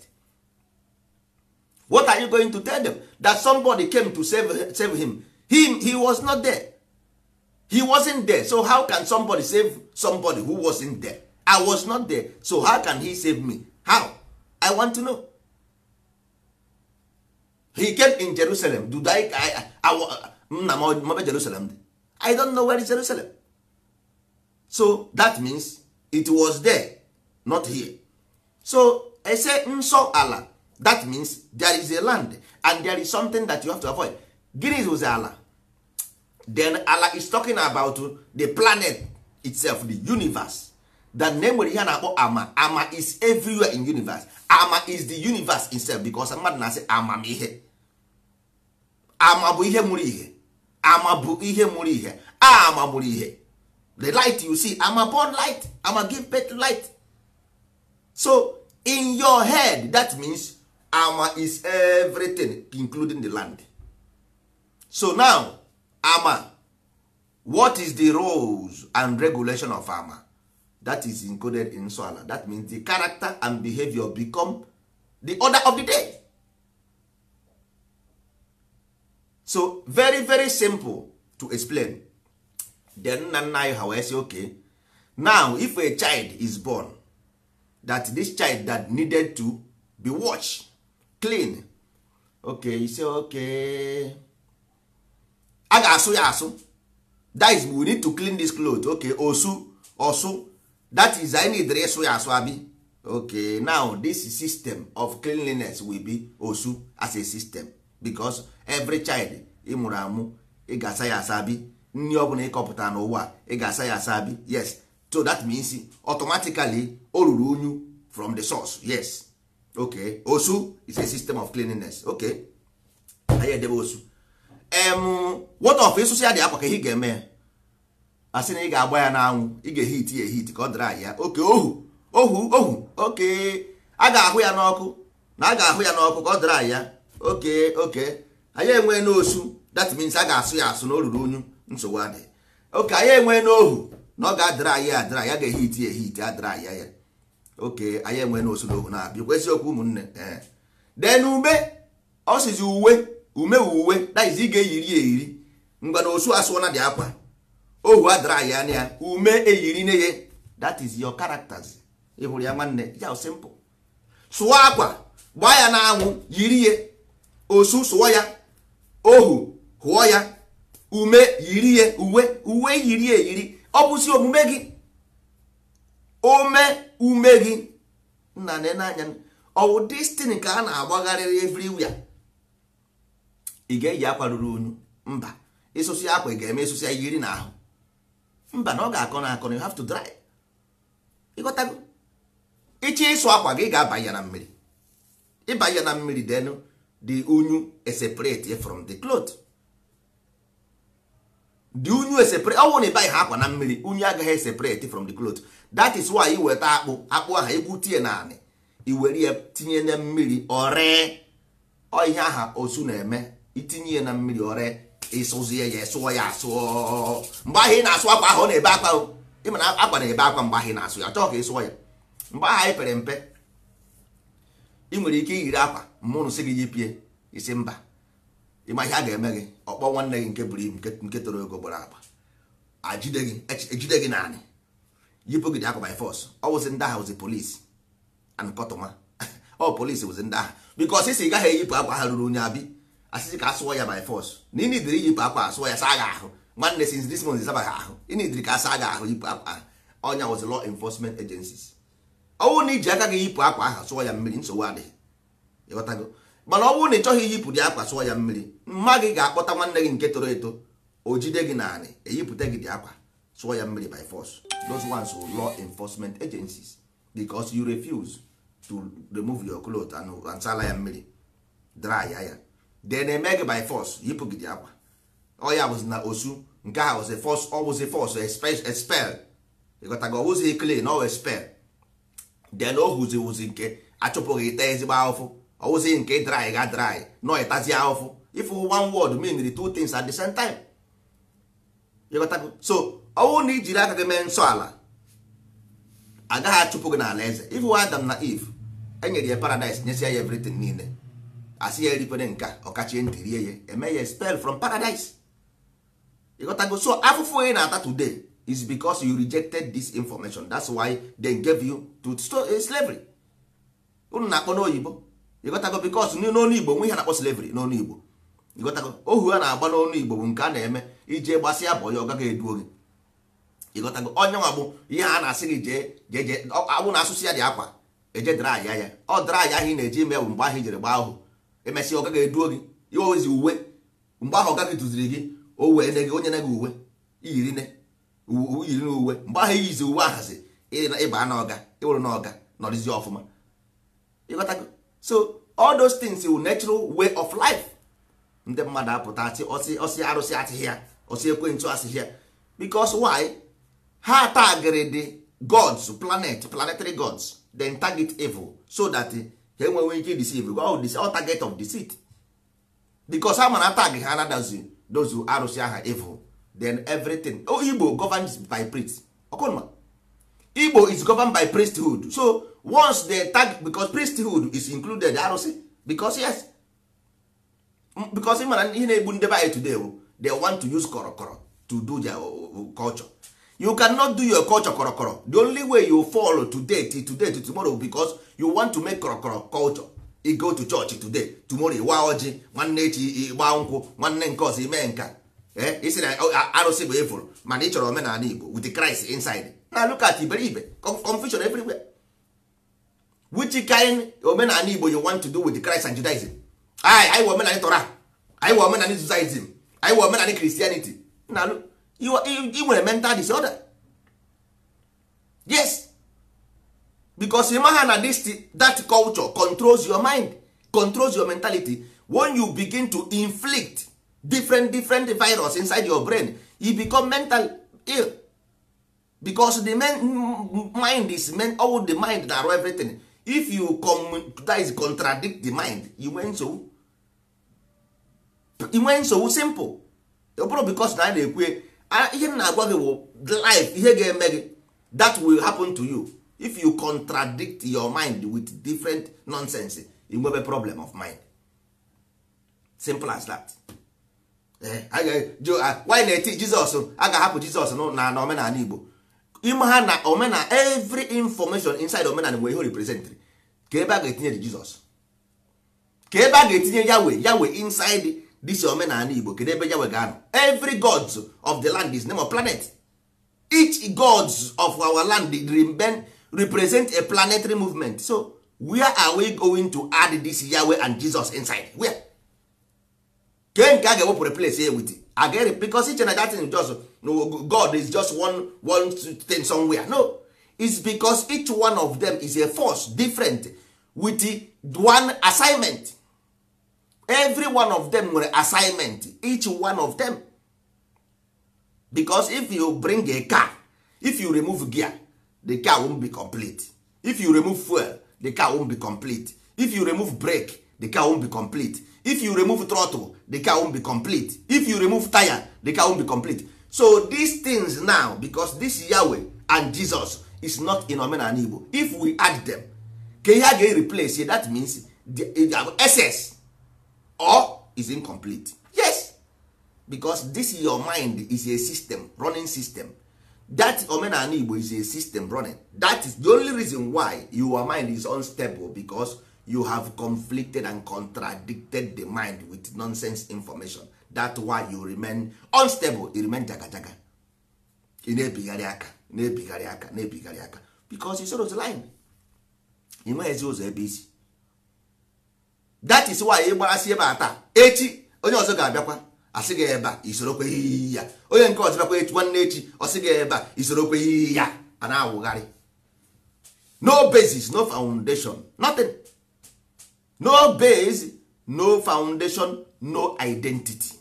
what are you going to tell them that somebody came to save, save him he, he was not there he wasn't there so how can somebody save somebody who wasn't there i was not there so how can he save me how i want to know he came in jerusalem do i i nna mm, m jerusalem dị i don't know where is jerusalem so that means it was there not here so ese nso mm, ala that means there is a land and there is something that you have to avoid gịnị is ala then ala is talking about the planet itself the universe that name nwere ihe a na-akpọ ama ama is everywhere in universe ama is the universe itself because mmadụ na-asị amamihe ama bụ ihe mụrụ ihe ama bụ ihe mụrụ ihe a ama mụrụ ihe the light you see ama born light ama give birth light so in your head that means ama is everything including the land so now ama what is the rules and regulation of ama that is encoded in soala that means the character and behavior become the order of the day so very very simple to explain then nna nna anyị ha wee sị ok now if a child is born that this child that needed to be washed clean ok you say ok a ga-asụ ya asụ that is we need to clean this cloth ok osu osu that is i need ịsụ ya asụ abi ok now this system of cleanliness will be osu as a system because every child ị mụrụ amụ ị ga-asa ya asa bi nri ọ bụla ịkọpụta n'ụwa ị ga-asa ya asa bi yes so that means automatically o ruru unyu from the source yes okay osu is a system of cleanliness okay anyị edebe osu em what of ịsụsụ ya dị akwa ka ihe ga-eme ya a sị na ị ga-agba ya n'anwụ ị ga-ehit ya ehit ka ọ dịrị ahịa oke ohu ohu ohu oke a ga-ahụ ya n'ọkụ na a ga-ahụ ya n'ọkụ ka ọ dịrị ahịa oke oke anyị enwe n'osu that means a ga-asụ ya asụ na o ruru unyu nsogbu adịghị oke anyị enwe n'ohu na ọ ga-adịrị anyị adịrị ya ga-ehiti ehiti adịrị anyị ya oke anyị enwe n'osu na ohu na-abịa kwesị okwu ụmụnne ee dee na ume ọ sizi uwe ume uwe daizi ị ga-eyiri ya eyiri ngwa na osu asụ na dị akwa ohu adịrị anyị na ya ume eyiri na ya that is your characters ị hụrụ ya nwanne ya simple sụọ akwa gbaa ya n'anwụ yiri ya osu sụọ ya ohu hụọ ya ume yiri ya uwe uwe yiri eyiri ọ bụsi omume gị ome ume gị nna n'anya ọwụ destin ka a na-agbagharịrị everywhere ị ga-eyi akwa ruru unyu mba ịsụsị akwa ị ga-eme ịsụsị yiri na ahụ mba na ọ ga-akọ na akọ na you have to dry ịghọtago ịchọ ịsụ akwa gị ga-abanye na mmiri ịbanye na mmiri denu the unyu separate from the cloth the unyu separate ọ bụrụ na ịbaghị ha akwa na mmiri unyu agaghị separate from the cloth that is why iweta akpụ akpụ ahụ egwutie naanị iwere ya tinye na mmiri ọree ọ ihe aha osu na-eme itinye ya na mmiri ọree ịsụzie ya sụọ ya asụọ mgbe ahụ ị na-asụ akwa ahụ ọ na-ebe akwa ịma na akwa na-ebe akwa mgbe ahụ ị na-asụ ya chọọ ka ị sụọ ya mgbe ahụ anyị pere mpe ị nwere ike iyiri akwa mmụnụ sị gị yipie isi mba ịma ihe a ga-eme gị ọkpọ nwanne gị nke buru ibu nke toro ego gbara agba ejide e e gị naanị yipụ gị dị akwa by force ọ ndị agha and kọtụma ọ polisi wụzi ndị agha because isi gaghị eyipụ akwa ha ruru onye abi asịsị ka asụọ ya by force na iyipụ akwa sụọ ya saa ahụ nwanne since this month ịsabaghị ahụ ahụ yipụ na iji aka gị yipụ akwa ahụ sụọ ya mmiri nsogbu adịghị ịghọtago mana ọ bụrụ na ị chọghị iyipụdị akwa sụọ ya mmiri mma gị ga-akpọta nwanne gị nke toro eto o jide gị naanị eyipụta gị dị akwa sụọ ya mmiri by force those ones are law enforcement agencies because you refuse to remove your cloth and sala ya mmiri dry ya then eme gị by force yipụ gị dị akwa ọ ya bụzi na osu nke a force ọ wụzi force expel ịghọtago ọ wụzi clean ọ expel then o huzi wuzi nke achụpụghị ite ezigbo ahụfụ ọwụsị nke dry ga dry nọ ịtazi ahụfụ ịfụ one word mean two things at the same time so ọwụ na ijiri aka gị mee nsọ ala agaghị achụpụ gị n'ala eze ịfụ Adam na Eve enyere ya paradise nyesi ya everything niile asị ya eripere nka ọkachie ntị rie ya eme ya spell from paradise ịghọtago so afụfụ onye na-ata today is because you rejected this information that's why they gave you to uh, slavery unu na-akpọ n'oyibo ịghọtago bikos n'ọnụ igbo nwe ihe na-akpọ slavery n'ọnụ igbo ịghọtago ohu a na-agba n'ọnụ igbo bụ nke a na-eme iji gbasịa bụ onye ọgaghị gaghị eduo gị ịghọtago onye nwa bụ ihe a na-asị gị jee jee abụ na asụsụ ya dị akwa eje dara ya ọ draya aya ahụ ị na-eji ime bụ mgbe ahụ ijere gbaa ahụ emesịa ọ gaghị eduo gị iwe ozi uwe mgbe ahụ ọgaghị duziri gị o wee ne gị onye na gị uwe iyiri ne uyiri na uwe mgbe ahụ iyizi uwe ahazi ịba na ọga ịwụrụ na nọrịzi ọfụma so all those things will natural way of life ndị mmadụ apụta asị ọsị ọsị arụsị asịghị ya ọsị ekwentị asịghị ya because why ha tagịrị the gods planet planetary gods then target evil so that ha enweghị ike deceive all target of deceit because ha mana atag ha anadazi those arụsị aha evil then everything oh, Igbo governs by priest ọkụnma Igbo is governed by priesthood so once dey tag because priesthood is included arụsị because yes because mana ihe na-egbu ndebe anyị today they want to use korokoro to do their culture you cannot do your culture korokoro the only way you fall today to today to tomorrow because you want to make korokoro culture i go to church today tomorrow ịwa ọjị nwanne echi ịgba nkwụ nwanne nke ọzọ ime nka isi na arụsị bụ for mana ị chọrọ omenala Igbo with Christ inside na look at iberibe confusion everywhere which kind omenala igbo you want to do with christ and judaism anyị anyị wee omenala torah anyị wee omenala judaism anyị wee omenala christianity na ị nwere mental disorder yes because ịma na this that culture controls your mind controls your mentality when you begin to inflict different different virus inside your brain you become mental ill because the mind is all the mind na-arụ everything if you that contradict the mind inwe Nsowu inwe nsogbu simple ọ bụrụ because na a na-ekwe ihe m na-agwa gị bụ life ihe ga-eme gị that will happen to you if you contradict your mind with different nonsense inwebe problem of mind simple as that eh, ah, why na-eti jizọs a ga-ahapụ jizọs na omenala igbo ime ha na omena every information inside omena nwere ihe representri ka ebe a ga-etinye dị jizọs ka ebe a ga-etinye yawe yawe inside this omenala igbo kedu ebe yawe ga-anọ every gods of the land is name of planet each gods of our land represent a planetary movement so where are we going to add this yawe and jesus inside where? ke nke a ga-ewepụrụ place i get it because iche na datin jos no god is just one one thing somewhere no it's because each one of them is a force different with one assignment every one of them nwere assignment each one of them because if you bring a car if you remove gear the car won't be complete if you remove fuel the car won't be complete if you remove brake the car won't be complete if you remove throttle the car won't be complete if you remove tire the car won't be complete so these things now because this Yahweh and Jesus is not in omenala Igbo if we add them ka ihe a ga-replace say that means the essence or is incomplete yes because this your mind is a system running system that omenala Igbo is a system running that is the only reason why your mind is unstable because you have conflicted and contradicted the mind with nonsense information that why you remain unstable you remain jagajaga ị na-ebigharị aka na-ebigharị aka na-ebigharị aka because isoro otu line ị ezi ụzọ ebe isi that is why ị gbarasị ebe a taa echi onye ọzọ ga-abịakwa asị gị ebe a isorokweghị ya onye nke ọzọ bịakwa nwanne echi ọsị gị ebe isorokweghị ya a na-awụgharị no basis no foundation nothing no base no foundation no identity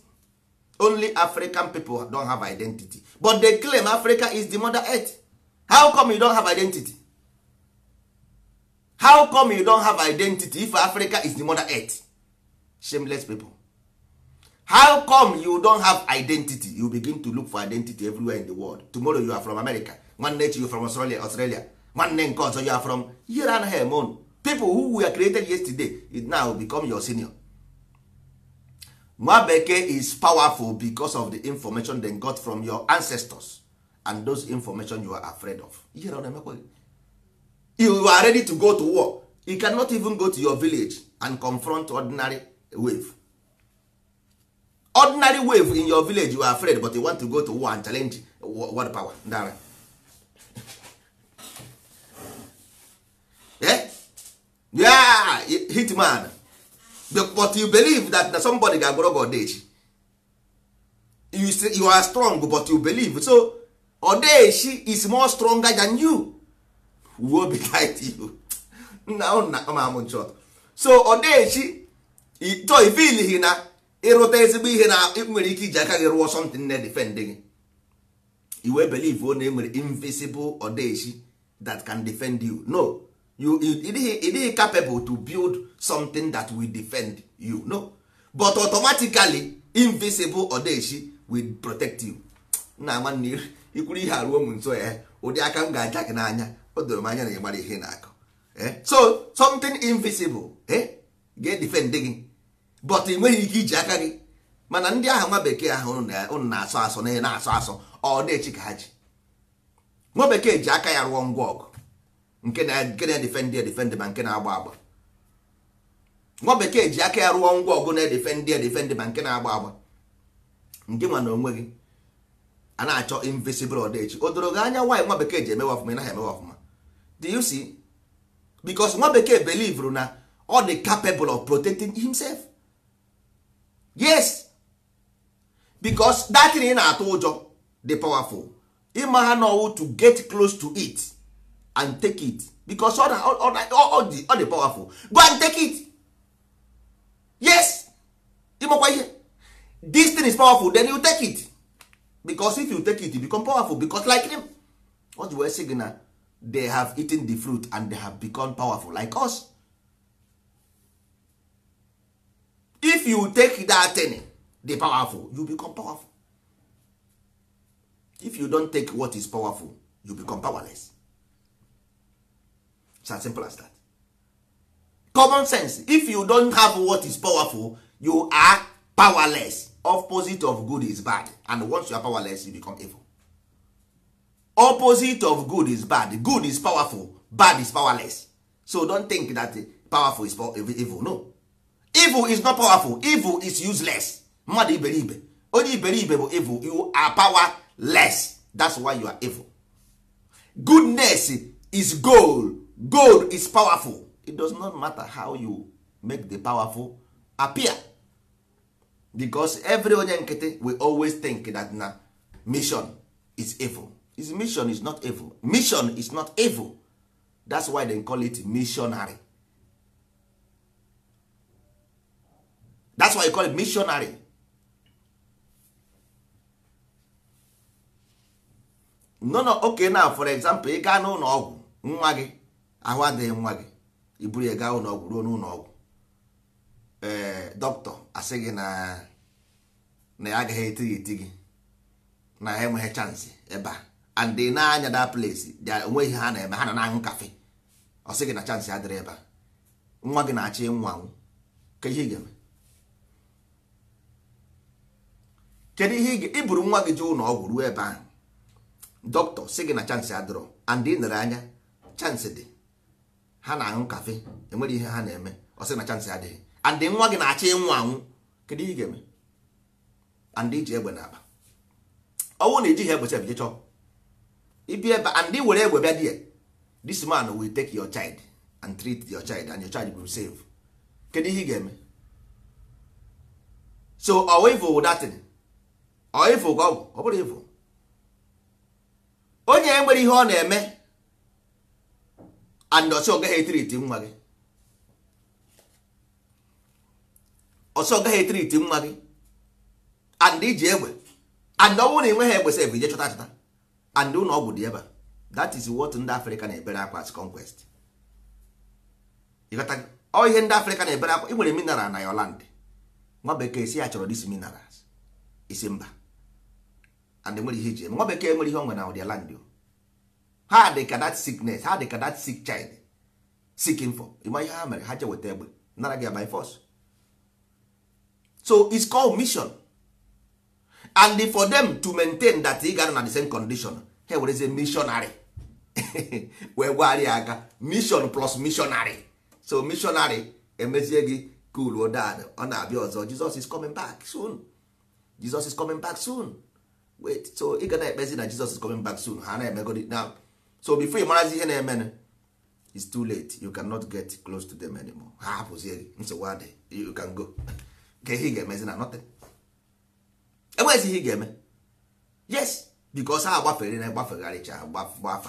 only african people don have identity but they claim africa is the mother earth how come you don have identity how come you don have identity if africa is the mother earth shameless people how come you don have identity you begin to look for identity everywhere in the world tomorrow you are from america nwanne echi you from australia australia nwanne nke ọzọ you are from here and here people who were created yesterday now become your senior nwa bekee is powerful because of the information they got from your ancestors and those information you are afraid of you are ready to go to war you cannot even go to your village and confront ordinary wave ordinary wave in your village you are afraid but you want to go to war and challenge world power ndara eh? yeah hitman but you believe that, somebody ga-agwọrọ gị echi you, say you are strong but you believe so ọda is more stronger than you be behind you nna nna ma amụ nchọt so ọda ito to ifilihi oh, na ịrụta ezigbo ihe na nwere ike iji aka gị rụọ something na defend gị iwe believe one enwere invisible ọda that can defend you no you ịdịghị capable to build something that will defend you no but automatically invisible odeshi will protect you nna nwanne ikwuru ihe arụ ụmụ nso ya eh? ụdị aka m ga-aja gị n'anya o doro m anya na ị mara ihe na-akọ eh? so something invisible eh? ga-edefend gị but ị nweghị ike iji aka gị mana ndị ahụ nwa bekee ahụ ụnụ na-asọ asọ na na-asọ asọ ọ ka ha ji nwa bekee ji aka ya rụọ ngwa ọgụ nke na-edefendị na-edefe edefendị ma nke na-agba agba nwa bekee ji aka ya rụọ ngwa ọgụ na-edefendị edefendị ma nke na-agba agba ndị nwa na onwe gị a na-achọ invisible odechi o doro gị anya nwaanyị nwa bekee ji emewe ọfụma ị naghị emewe ọfụma do you see because nwa bekee belivru na ọ dị capable of protecting himself yes because that thing ị na-atụ ụjọ dị powerful ịma ha n'ọwụ to get close to it and take it because all the all the powerful go and take it yes ịmakwa ihe this thing is powerful then you take it because if you take it you become powerful because like them what the wee sị they have eaten the fruit and they have become powerful like us if you take that thing the powerful you become powerful if you don't take what is powerful you become powerless It's as simple as that. Common sense. If you don't have what is powerful, you are powerless. Opposite of good is bad, and once you are powerless, you become evil. Opposite of good is bad. Good is powerful, bad is powerless. So don't think that powerful is evil. No, evil is not powerful. Evil is useless. Mmadụ iberibe onye iberibe bụ evil. You are powerless. That's why you are evil. Goodness is goal gold is powerful it does not matter how you make the powerful appear because every onye nkịtị we always think that na mission is evil his mission is not evil mission is not evil that's why they call it missionary that's why you call it missionary no no okay now for example ị gaa n'ụlọ ọgwụ nwa gị ahụ adịghị nwa gị iburu ya gaa ụlọọgwụ ruo n'ụlọ ee eh, dọkịta asị gị na na ya agaghị etighị eti gị na ha enweghị chansị ebe a and na-anya da place onweghị ha na-eme ha nọ na-aṅụ kafe ọ gị na chansị adịrị ebe a nwa gị na achị ịnwụ anwụ ka ihe ị ga-eme kedu ihe iburu nwa gị jee ụlọ ọgwụ ruo ebe ahụ dọkịta sị gị na chansị adịrọ and ị nere anya chansị dị ha na-aṅụ kafe enwere ihe ha na-eme ọ sị na chansị adịghị andị nwa gị na-achọ ịnwụ anwụ kedu ihe ị ga-eme andị iji egbe na akpa ọnwụ na ejighị egbe chef jechọ ibi ebe andị were egbe bịa die this man will take your child and treat your child and your child will save kedu ihe ị ga-eme so ọwa ọwịvụ datin ọịvụ ka ọ bụ ọ bụrụ ịvụ onye nwere ihe ọ na-eme and ọsọ gaghị etriti nwa gị ọsọ gaghị etriti nwa gị and iji egbe and ọ bụrụ na ị nweghị egbe sef ije chọta chọta and ụlọ ọgwụ dị ebe that is what ndị Africa na-ebere akwa as conquest ọ ihe ndị Africa na-ebere akwa ị nwere mineral na your land nwa bekee si ya chọrọ dis minerals isi mba and nwere ihe ji eme nwa bekee nwere ihe ọ nwere na ụdị land o ha dị ka that sickness ha dị ka that sick child seeking for ịma ihe ha mere ha je weta egbe nara gị by force so it's called mission and for them to maintain that ị gara na the same condition ha werezie missionary wee gwagharịa aka mission plus missionary so missionary emezie gị cool dad ọ na-abịa ọzọ Jesus is coming back soon Jesus is coming back soon wait so ị ga na-ekpezi na Jesus is coming back soon ha na-emegodi now so before ị marazi ihe na-emenụ it's too late you cannot get close to them anymore ha hapụzie gị nsogbu adị you can go nke ihe ị ga-emezi na nothing enweghịzi ihe ị ga-eme yes because ha agbafere na agbafegharịcha gbafa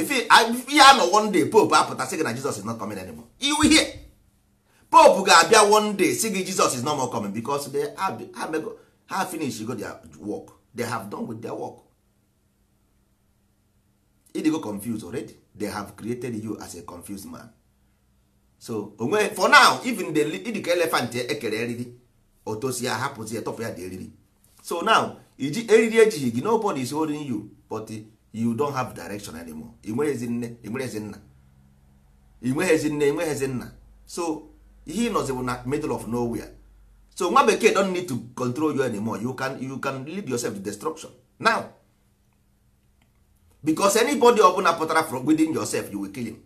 ihe anọ one day pope apụtasị gị na Jesus is not coming anymore iwu ihe pope ga-abịa one day sị gị Jesus is not more coming because they have ha finish go their work they have done with their work go confused already they have created you as a confused man so onwe for now even the ịdịka elephant ekere eriri otosi ya hapụzi ya tọpụ ya dị eriri so now iji eriri ejighị gị nobody is holding you but you don't have direction anymore ị nweghịzi nne ị nweghịzi nna ị nweghịzi nne ị nweghịzi nna so ihe ịnọzi bụ na middle of nowhere so nwa bekee don't need to control you anymore you can, you can lead yourself to destruction now because anybody ọbụla pụtara from within yourself you will kill him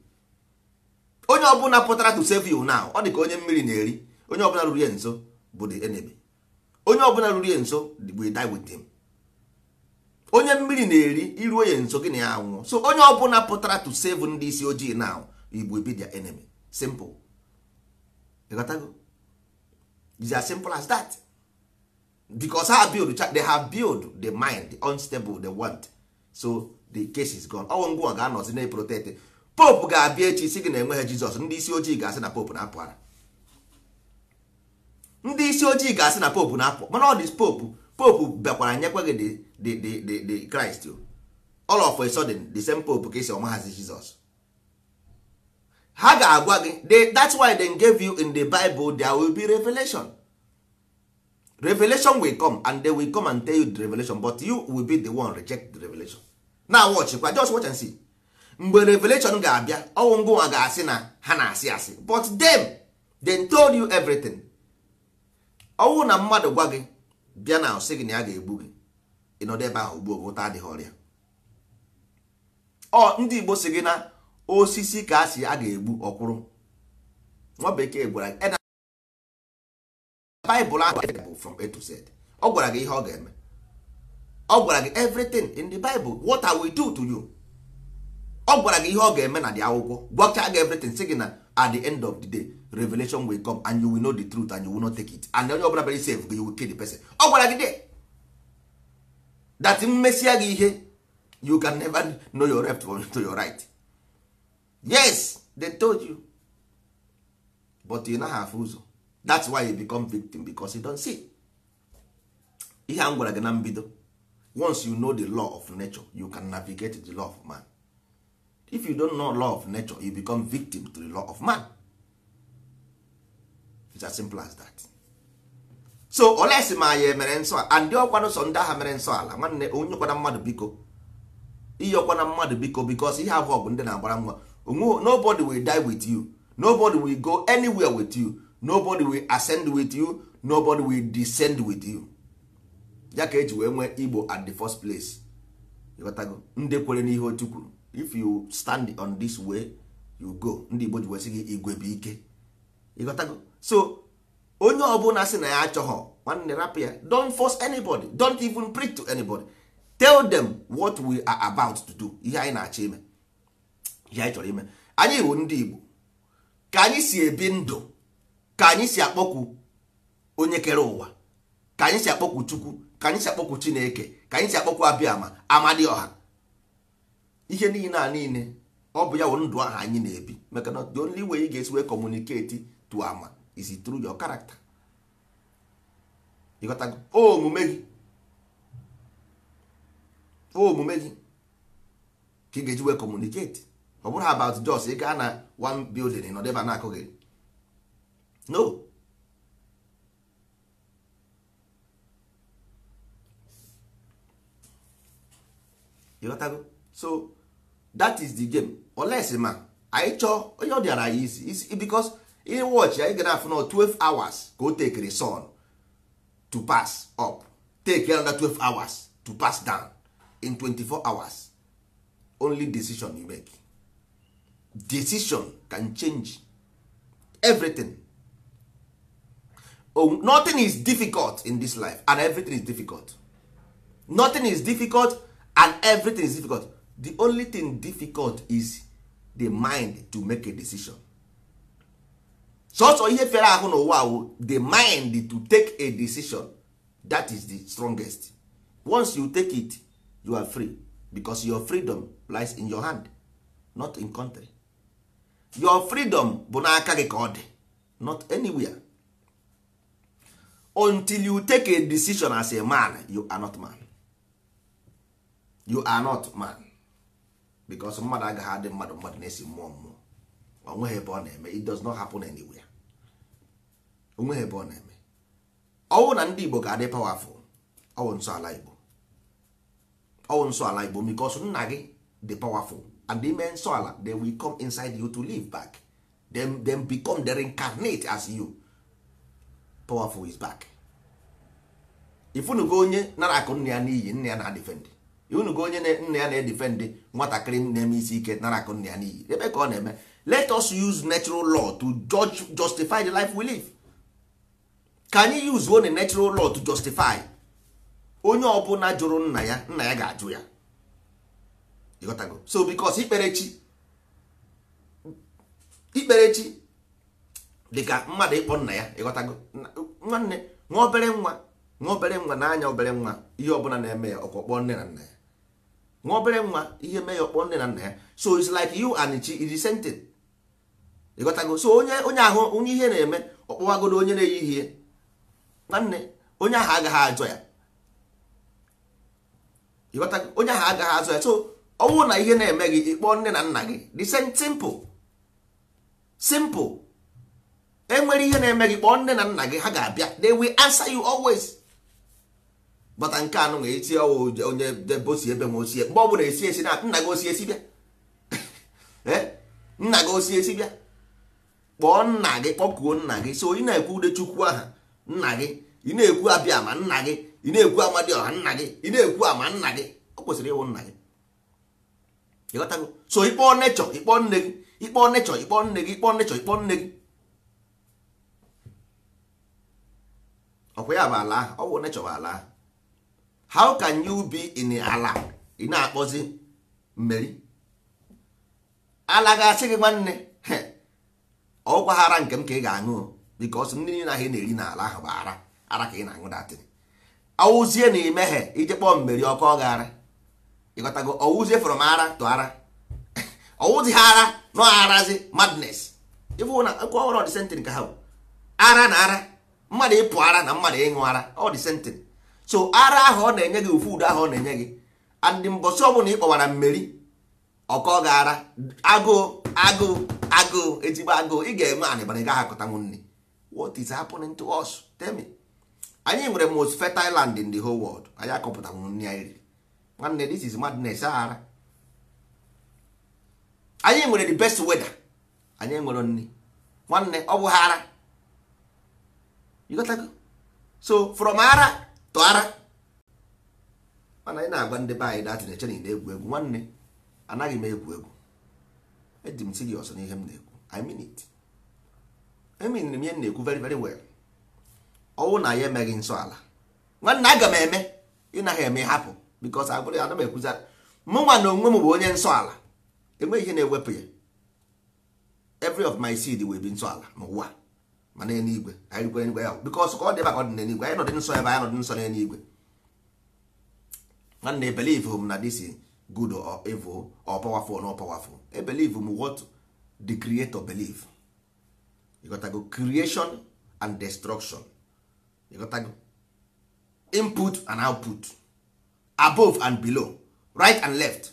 onye ọbụla pụtara to save you now ọ dị ka onye mmiri na-eri onye ọbụla ruru ya nso bụ the enemy onye ọbụla ruru ya nso will die with him onye mmiri na-eri iruo ya nso gịnị ya anwụọ so onye ọbụla pụtara to save ndị isi ojii now igbo be their enemy simple ịghọtago is as simple as that because ha build they have build the mind the unstable they want so the case is gone ọnwụ ngwa ga-anọzi na protect pope ga-abịa echi si gị na enweghị jizọs ndị isi ojii ga-asị na pope na-apụ ara ndị isi ojii ga-asị na pope na-apụ mana ọ dị pope pope bịakwara nyekwa gị the kraịst all of a sudden the same pope ka esi ọmahazi jizọs ha ga-agwa gị that's why they gave you in the bible there will be revelation revelation will come and they will come and tell you the revelation but you will be the one reject the revelation na watchkwa just watch and see mgbe revelation ga-abịa ọnwụ ngụnwa ga-asị na ha na-asị asị but them they told you everything ọnwụ na mmadụ gwa gị bịa na sị gị na ya ga-egbu gị ịnọdụ ebe ahụ gbuo ụta adịghị ọrịa ọ ndị Igbo si gị na osisi ka a a ga-egbu ọkwụrụ nwa bekee gwara gị Baịbụl ahụ from A to Z ọ gwara gị ihe ọ ga-eme ọ gwara gị everything in the bible what I will do to you ọ gwara gị ihe ọ ga-eme na dị akwụkwọ gwachaa gị everything sị gị na at the end of the day revelation will come and you will know the truth and you will not take it and onye ọbụla bere save you will kill the person ọ gwara gị de that mmesia gị ihe you can never know your left to your right yes they told you but you naghị afụ ụzọ that's why you become victim because you don see ihe a m gwara gị na mbido once you know the law of nature you can navigate the law of man if you don't know law of nature you become victim to the law of man it's as simple as that so olesi ma ya emere nsọ and ọkwana sọ ndị agha mere nsọ ala nwanne onye ọkwana mmadụ biko ihe ọkwana mmadụ biko because ihe abụọ bụ ndị na-agbara nwa nobody will die with you nobody will go anywhere with you nobody will ascend with you nobody will descend with you ya ka eji wee nwee igbo at the first place ịghọtago ndị kwere n'ihe otu kwuru if you stand on this way you go ndị igbo ji wesị gị igwe bụ ike ịghọtago so onye ọbụla sị na ya achọghọ nwanne rapụ ya don't force anybody don't even preach to anybody tell them what we are about to do ihe anyị na-achọ ime ihe anyị chọrọ ime anyị bụ ndị igbo ka anyị si ebi ndụ ka anyị si akpọkwu onye kere ụwa ka anyị si akpọkwu chukwu ka anyị si akpọkwu chineke ka anyị si akpọkwu dị ọha ihe niile a niile ọ bụ ya wụ ndụ ahụ anyị na-ebi maka na the only way ị ga-esi wee communicate to ama is through your character ịghọtago omume gị omume gị ka ị ga-eji wee communicate ọ bụrụ about jos ị gaa na one building nọdebe na akụghị no ịghọtago so that is the game oles ma anyị chọọ onye ọ dịara ya isi bicos ihe wọchị anyị gara afụ na 12 hours ka o tekiri sun to pass up take another 12 hours to pass down in 24 hours only decision you make decision can change everything oh, nothing is difficult in this life and everything is difficult nothing is difficult and everything is difficult the only thing difficult is the mind to make a decision sọsọ ihe fere ahụ n'ụwa the mind to take a decision that is the strongest once you take it you are free because your freedom lies in your hand not in country your freedom bụ n'aka gị ka ọ dị not anywhere until you take a decision as a man you are not man you are not man because mmadụ agaghị adị mmadụ mmadụ na-esi mmụọ mmụọ onweghị ebe ọ na-eme it does not happen anywhere onweghị ebe ọ na-eme ọwụ na ndị Igbo ga-adị powerful ọwụ nsọ ala Igbo ọwụ nsọ ala Igbo because nna gị dị powerful and ime nsọ ala they will come inside you to live back them, them become the reincarnate as you powerful is back ifunugo onye nara akụ nna ya n'iyi nna ya na-adefend unugo onye nna ya na-edifendị nwatakịrị na-eme isi ike nara akụ nna ya n'iyi ebe ka ọ na-eme let us use natural law to judge, justify the life we live ka anyị use one natural law to justify onye ọbụla jụrụ nna ya nna ya ga-ajụ ya ịghọtago so because ikperechi ikperechi dịka mmadụ ịkpọ nna ya ịghọtago nwanne nwa obere nwa nwa obere nwa n'anya obere nwa ihe ọbụla na-eme ya ọkwa kpọọ nne na nna ya nwa obere nwa ihe mee ya ọkpọ nne na nna ya so it's like you and chi is the same thing ịghọtago so onye onye ahụ onye ihe na-eme ọkpọwagodo onye na-eyi ihe nwanne onye ahụ agaghị ajọ ya ịghọtago onye ahụ agaghị azụ ya so ọnwụ na ihe na-eme gị ịkpọ nne na nna gị the same simple simple enwere ihe na-eme gị kpọọ nne na nna gị ha ga-abịa they will answer you always bata nke anụ na esi onye debe ebe ma osie mgbe ọ bụla esi esi na nna gị osi esi bịa eh? nna gị osi esi bịa kpọọ nna gị kpọkuo nna gị so ị na-ekwu ude aha nna gị ị na-ekwu abịa ma nna gị ị na-ekwu ọha nna gị ị na-ekwu ama nna gị ọ kwesịrị ịwụ nna gị so ịkpọọ nechọ ịkpọọ nne gị ịkpọọ nechọ ịkpọọ nne gị ịkpọọ nechọ ịkpọọ nne gị ọkwa ya bụ ala ahụ ọ bụ nechọ bụ ala ahụ how can you be in ala ị na-akpọzi mmeri ala ga-asị gị nwanne ọgwa ara nke m ka ị ga-aṅụ bikos ndị nile ahụ na-eri n'ala ahụ bụ ara ara ka ị na-aṅụ datịrị awụzie na imeghe ije kpọọ mmeri ọkụ ọ gara ịghọtago ọwụzie m ara to ara ọwụzi ha ara nọ arazi madness ịfụ na nkwa ọhụrụ ọdịsentịn ka ha bụ ara na ara mmadụ ịpụ ara na mmadụ ịṅụ ara ọ ọdịsentịn so ara ahụ ọ na-enye gị ofu ahụ ọ na-enye gị andị mbọsị ọbụla ị kpọwara mmeri ọkọ gara agụụ agụụ agụụ ezigbo agụụ ị ga-eme anịbara gaghị akọtanwu nri what is happening to us tell me anyị nwere most fertile land in the whole world anyị akọpụtanwu nri anyị riri nwanne this is madness ara anyị nwere the best weather anyị nwere nri nwanne ọ bụ ha ara so from ara tụara mana ị na-agwa ndị be anyị datị na-eche na ị na-egwu egwu nwanne anaghị m egwu egwu eji m si gị ọsọ n'ihe m na-ekwu I mean it eminiri m ihe m na-ekwu very very well ọnwụ na ya emeghị nsọ ala nwanne aga m eme ị naghị eme hapụ because agbụrụ ana m ekwuza mụ nwa na onwe m bụ onye nsọ ala enweghị ihe na-ewepụ ya every of my seed wee bi nsọ ala n'ụwa ma n'eluigwe anyị rikwe n'igwe ya bikos ka ọ dị ebe ka ọ dị n'eluigwe anyị nọdị nsọ ebe anyị nọdị nsọ n'eluigwe nwanne ebelive m na dis good or evil or powerful or not powerful ebelive m what the creator believe ịghọtago creation and destruction ịghọtago input and output above and below right and left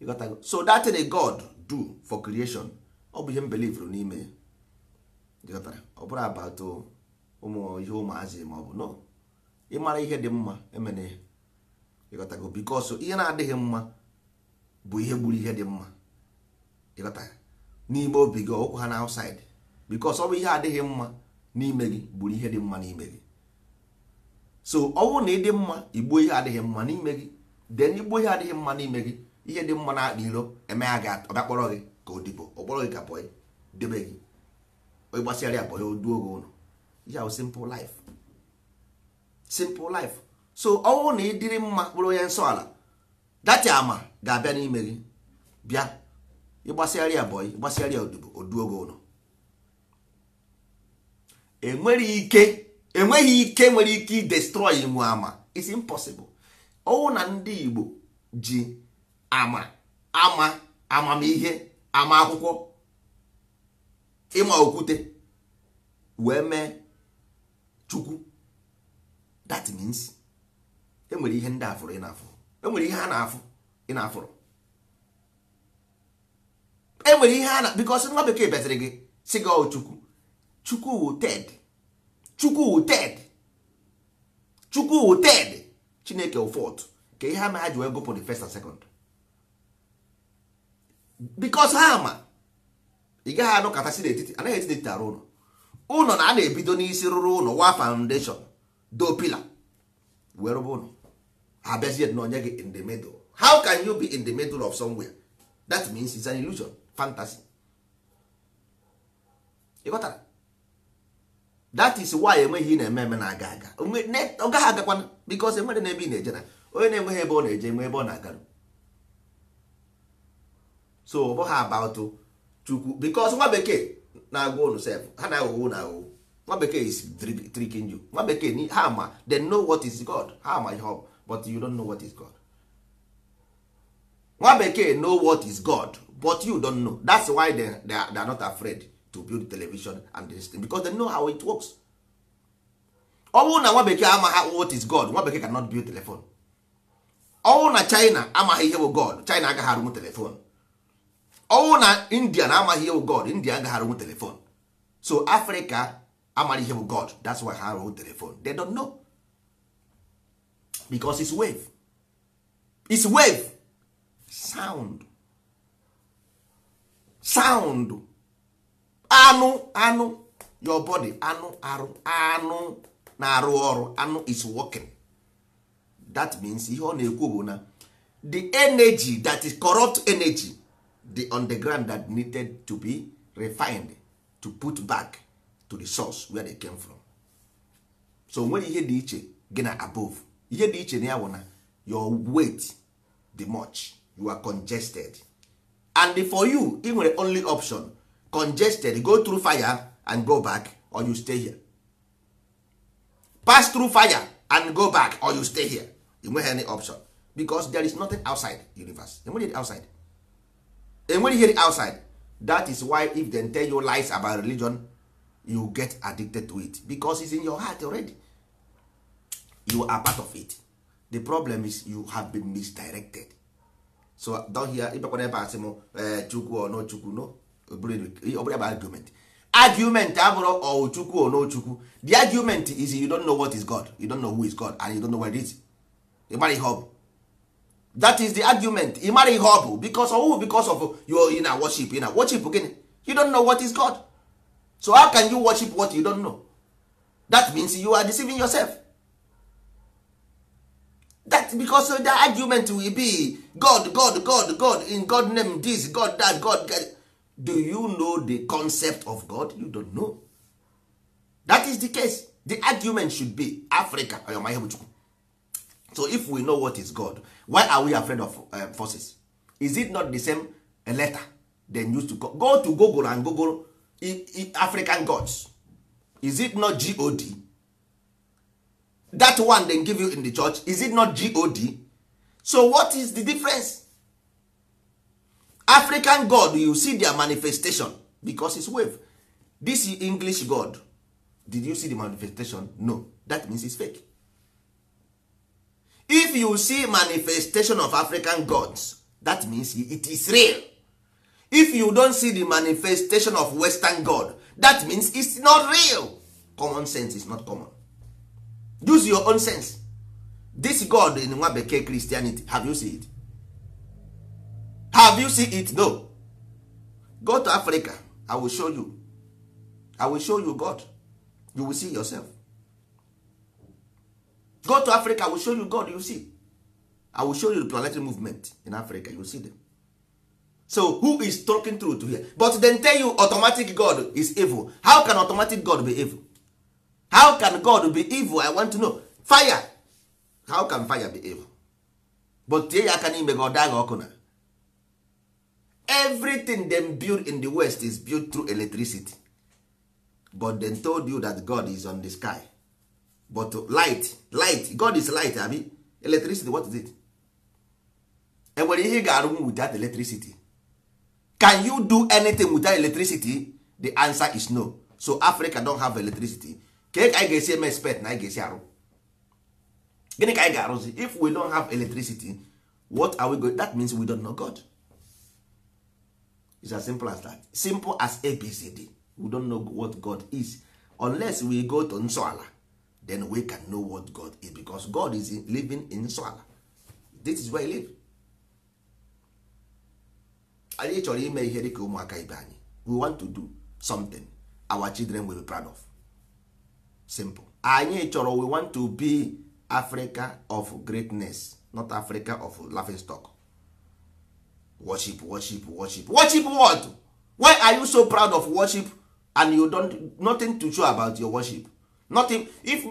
ịghọtago so that thing god do for creation ọ bụ ihe m belivere n'ime ya ọ bụrụ abatụ ụmụ ihe ụmụazị ma ọ ịmara ihe dị mma emene ya ịghọtago bikọsụ ihe na-adịghị mma bụ ihe gburu ihe dị mma ịghọta n'ime obi gị ọkwa ha na outside bikọsụ ọ bụ ihe adịghị mma n'ime gị gburu ihe dị mma n'ime gị so ọ bụrụ na ịdị mma igbuo ihe adịghị mma n'ime gị den igbuo ihe adịghị mma n'ime gị ihe dị mma na-akpa iro emegha gị ọbịakpọrọ gị ka odibo ọkpọrọ gị ka bọyị debe gị ịgbasịara akpọ ya oduo gị ụlọ ya bụ simple life so ọ na ịdịrị mma kpụrụ onye nsọ ala dati ama ga-abịa n'ime gị bịa ịgbasịara ya bọyị ịgbasịara ya oduo gị ụlọ enweghị ike enweghị ike nwere ike idestroy nwe ama it's impossible ọwụ na ndị Igbo ji ama ama amamihe ama akwụkwọ ịma okwute wee mee chukwu that means enwere ihe ndị afụrụ ị na-afụ enwere ihe a na-afụ ị na-afụrụ enwere ihe a na because nwa bekee bịaziri gị si gị oh, chukwu chukwu wu ted chukwu wu ted chukwu ted chineke ụfọdụ ka ihe ama ha ji wee gụpụ the first and second because ha ama ị gaghị anọkọtasị n'etiti anaghị eti n'etiti arụ ụlọ ụlọ na a na-ebido n'isi rụrụ ụlọ wa foundation do pila wee rụba ụlọ ha bịazie na onye gị in the middle how can you be in the middle of somewhere that means it's an illusion fantasy ịghọtara that is why enweghị na-eme eme na-aga aga ọ gaghị agakwana because enwere na ebe ị na-eje na onye na-enweghị ebe ọ na-eje enwe ebe ọ na-agarụ so ọ bụghị about chukwu because nwa bekee na-agwa unu sef ha na-aghọgho na aghọgho nwa bekee is tricking you nwa bekee ha ma they know what is god ha ma ihe but you don't know what is god nwa bekee know what is god but you don't know that's why they, they, are, they are not afraid to build television and this thing because they know how it works ọ na nwa bekee amaghị what is god nwa bekee cannot build telephone ọ na china amaghị ihe bụ god china agaghị arụnwu telephone ọnwụ na india na amaghị ihe bụ god india agaghị arụnwu telefon so africa amaghị ihe bụ god that's why ha arụnwu telefon they don't know because it's wave it's wave sound sound anụ anụ your body anụ arụ anụ na-arụ ọrụ anụ is working that means ihe ọ na-ekwu bụ na the energy that is corrupt energy the underground that needed to be refined to put back to the source where they came from so nwere ihe dị iche gị na above ihe dị iche na ya na your weight di much you are congested and for you ị nwere only option congested go through fire and go back or you stay here pass through fire and go back or you stay here you nweghị any option because there is nothing outside universe enweghị outside Eh, hear ihe outside that is why if they tell you lies about religion you get addicted to it because it's in your heart already you are part of it the problem is you have been misdirected so don hear ịbakwana ebe asị m chukwu ono chukwu no ọbụrụ ebe eh, argument argument abụrụ ọwụ chukwu ono chukwu the argument is you don't know what is god you don't know who is god and you don't know where it is ịmara ihe ọ bụ that is the argument ị mara ihe ọ bụ because of because of your ị na worship you na worship gịnị you don't know what is God so how can you worship what you don't know that means you are deceiving yourself that because the argument will be God God God God in God name this God that God, God. do you know the concept of God you don't know that is the case the argument should be Africa ọyọma ihe bụ Chukwu so if we know what is god why are we afraid of uh, forces is it not the same letter dem used to go, go to google and google I, I, african gods is it not god that one they give you in the church is it not god so what is the difference african god you see their manifestation because it's wave this english god did you see the manifestation no that means it's fake if you see manifestation of african gods that means it is real if you don't see the manifestation of western god that means it's not real common sense is not common use your own sense this god in nwa bekee christianity have you seen it have you seen it no go to africa i will show you i will show you god you will see yourself go to africa i will show you god you see i will show you the planetary movement in africa you see them so who is talking truth here but then tell you automatic god is evil how can automatic god be evil how can god be evil i want to know fire how can fire be evil but tie ya aka n'ime gị ọkụ na everything them build in the west is built through electricity but dem told you that god is on the sky but light light god is light abi electricity what is it enwere ihe ga ga-arụnwu that electricity can you do anything without electricity the answer is no so africa don have electricity ka anyị ga-esi eme expect na anyị ga-esi arụ gịnị ka anyị ga-arụzi if we don have electricity what are we going that means we don't know god It's as simple as that simple as abcd we don't know what god is unless we go to nsọala then we can know what God is because God is living in nsọala this is where he live anyị chọrọ ime ihe dịka ụmụaka ibe anyị we want to do something our children will be proud of simple anyị chọrọ we want to be Africa of greatness not Africa of laughing stock worship worship worship worship what why are you so proud of worship and you don't nothing to show about your worship nothing if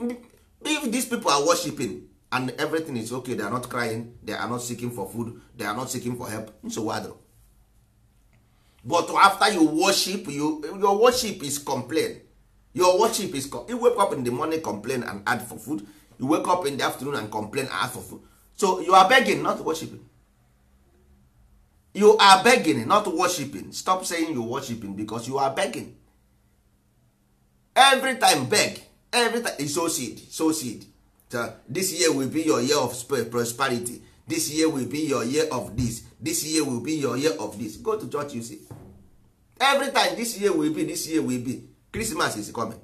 if these people are worshiping and everything is okay they are not crying they are not seeking for food they are not seeking for help nsogbu adịrọ but after you worship you, your worship is complain your worship is you wake up in the morning complain and add for food you wake up in the afternoon and complain and ask for food so you are begging not worshiping you are begging not worshiping stop saying you worshiping because you are begging every time beg every is so seed so seed so this year will be your year of prosperity this year will be your year of this this year will be your year of this go to church you see every time this year will be this year will be christmas is coming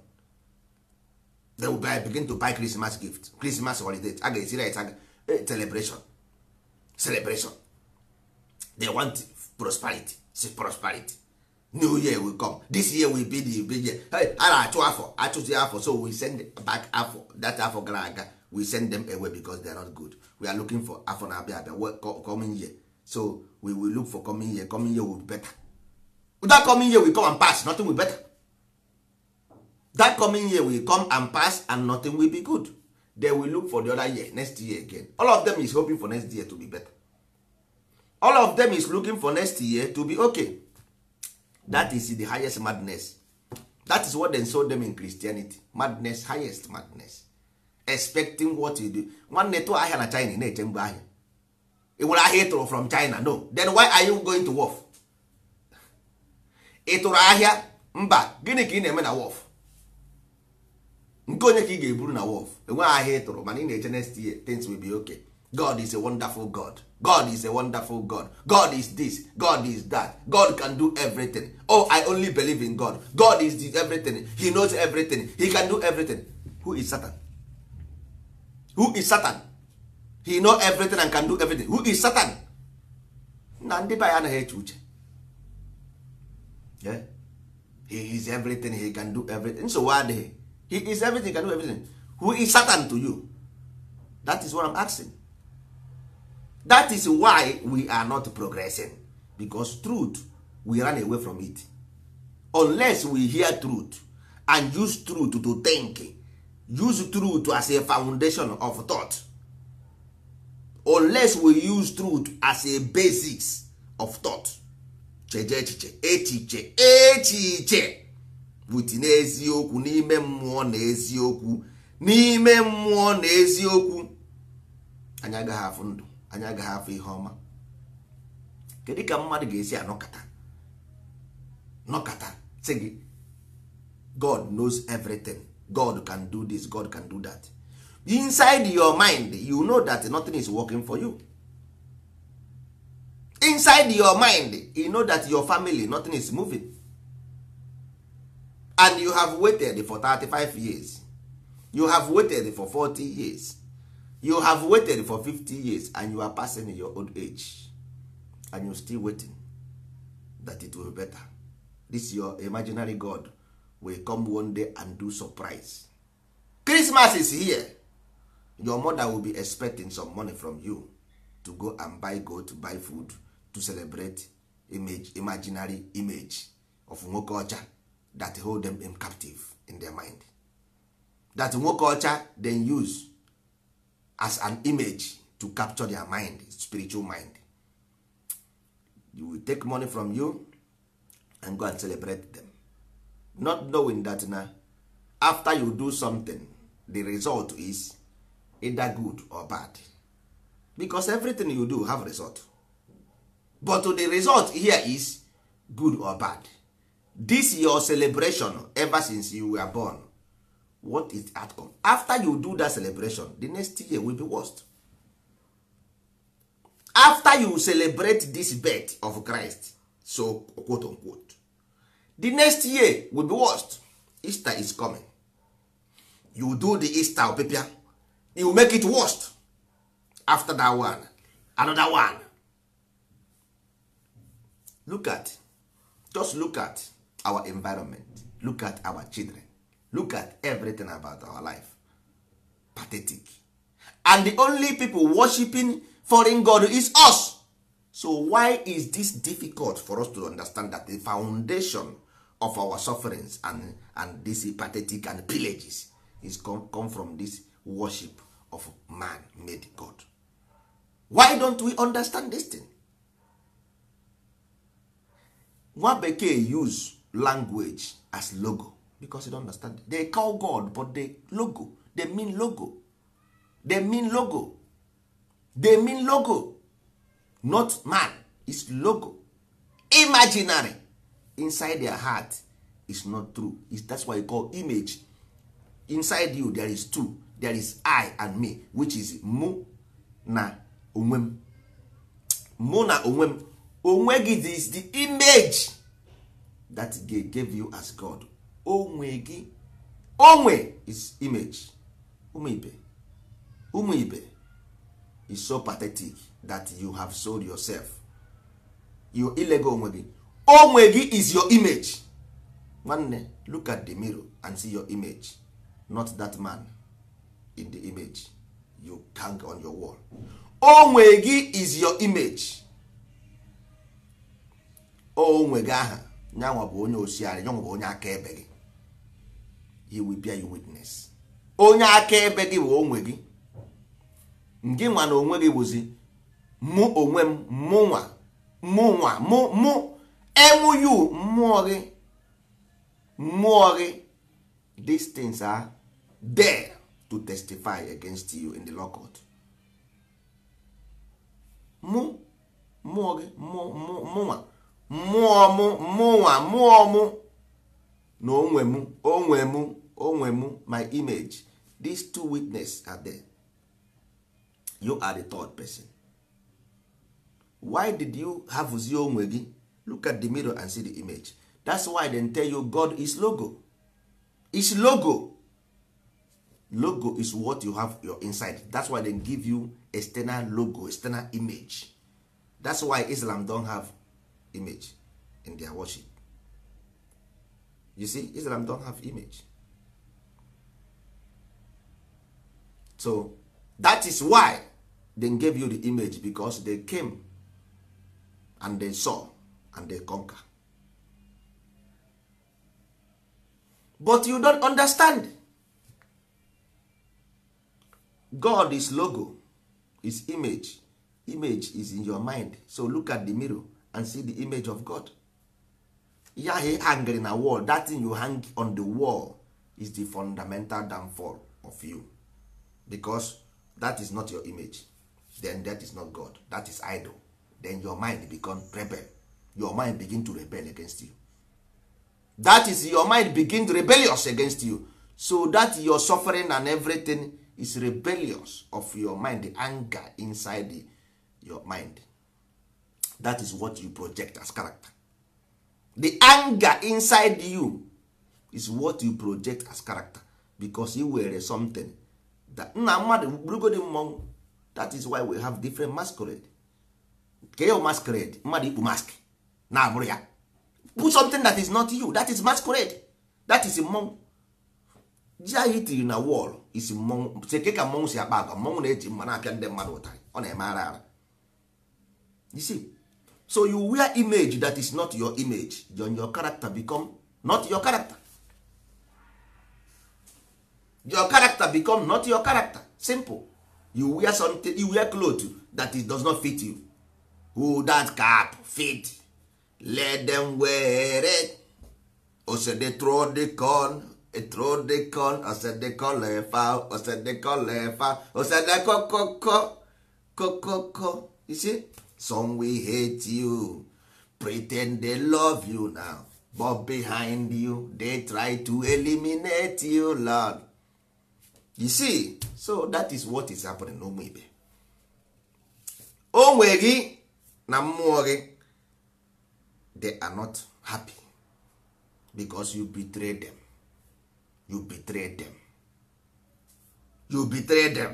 they will buy, begin to buy christmas gift christmas holiday aga ga-esi eh, right celebration celebration they want prosperity see prosperity new year will come this year will be the big year a na-achụ afọ achụzi afọ so we send back afọ that afọ gara aga we send them away because they are not good we are looking for afọ na-abịa abịa coming year so we will look for coming year coming year will be better that coming year will come and pass nothing will be better that coming year will come and pass and nothing will be good they will look for the other year next year again all of them is hoping for next year to be better all of them is looking for next year to be okay that is the highest madness that is what they sold them in christianity madness highest madness expecting what you do nwanne tụọ ahịa na china na-eche mgbe ahịa ị nwere ahịa ịtụrụ from china no then why are you going to wolf Ịtụrụ ahịa mba gịnị ka ị na-eme na wolf nke onye ka ị ga-eburu na wolf enweghị ahịa ịtụrụ mana ị na-eche next year things will be okay god is a wonderful god god is a wonderful god god is this god is that god can do everything oh i only believe in god god is this everything he knows everything he can do everything who is satan who is satan he know everything and can do everything who is satan na ndị be anaghị eche uche he is everything he can do everything why adịghị he is everything he can do everything who is satan to you that is what i'm asking that is why we are not progressing because truth we run away from it unless we hear truth and use truth to think use truth as a foundation of thought unless we use truth as a basis of thought cheje echiche echiche echiche butinye n'eziokwu n'ime mmụọ na eziokwu n'ime mmụọ na eziokwu anyị agaghị afụ ndụ anya agaghị afọ ihe ọma kedu ka mmadụ ga-esi anọkata nọkata sị gị god knows everything god can do this god can do that inside your mind you know that nothing is working for you inside your mind you know that your family nothing is moving and you have waited for 35 years you have waited for 40 years you have waited for 50 years and you are passing your old age and you still waiting that it will be better this your imaginary god will come one day and do surprise christmas is here your mother will be expecting some money from you to go and buy goat buy food to celebrate image imaginary image of nwoke ocha that hold them in captive in their mind that nwoke ocha then use as an image to capture their mind spiritual mind you will take money from you and go and celebrate them not knowing that na after you do something the result is either good or bad because everything you do have result but the result here is good or bad this your celebration ever since you were born what is outcome after you do that celebration the next year will be worst after you celebrate this birth of christ so quote unquote the next year will be worst easter is coming you do the easter opepia you make it worst after that one another one look at just look at our environment look at our children look at everything about our life pathetic and the only people worshiping foreign god is us so why is this difficult for us to understand that the foundation of our sufferings and, and this pathetic and pillages is come, come from this worship of man-made god why don't we understand this thing? nwa bekee use language as logo because you don't understand they call god but they logo they mean logo they mean logo they mean logo not man is logo imaginary inside their heart is not true it's, that's why you call image inside you there is two there is i and me which is mu na onwem mu na onwem onwe is the image that gave you as god onwe gị onwe is image Umu ibe Umu ibe is so pathetic that you have sold yourself your ilego onwe gị onwe gị is your image nwanne look at the mirror and see your image not that man in the image you hang on your wall onwe gị is your image onwe gị aha nyanwa bụ onye osiara nyanwa bụ onye akaebe gị he will bear you witness onye akaebe gị bụ onwe gị gị nwa na onwe gị bụzi mụ onwe m mụ nwa mụ nwa mụ mụ enwuyu mmụọ gị mmụọ gị these things are there to testify against you in the law court mụ mmụọ gị mụnwa mụọ mụ mụnwa mụọ mụ na onwe mụ onwe mụ onwe m my image these two witness are there you are the third person why did you have zi onwe gị look at the mirror and see the image that's why they tell you God is logo is logo logo is what you have your inside that's why they give you external logo external image that's why Islam don have image in their worship you see Islam don have image so that is why they gave you the image because they came and they saw and they conquer but you don't understand god is logo is image image is in your mind so look at the mirror and see the image of god yahe ahụ na wall that thing you hang on the wall is the fundamental downfall of you because that is not your image then that is not god that is idol then your mind become rebel your mind begin to rebel against you that is your mind begin rebellious against you so that your suffering and everything is rebellious of your mind the anger inside the, your mind that is what you project as character the anger inside you is what you project as character because you were something nna mmadụ bụrụgodi mmọnwụ that is why we have different masquerade ke ya masquerade mmadụ ikpu mask na-abụrụ ya put something that is not you that is masquerade that is mmọnwụ ji anyị tiri na wọl isi mmọnwụ seke ka mmọnwụ si akpa agwa mmọnwụ na-eji mma na-apịa ndị mmadụ ụtarị ọ na-eme ara ara you see so you wear image that is not your image your character become not your character your character become not your character simple you wear something you wear cloth that it does not fit you who that cap fit let them wear it osede throw the corn e throw the corn osede kolefa osede kolefa osede kokoko kokoko you see some we hate you pretend they love you now but behind you they try to eliminate you lord you see so that is what is happening n'ụmụ ibe onwe gị na mmụọ gị they are not happy because you betray them you betray them you betray them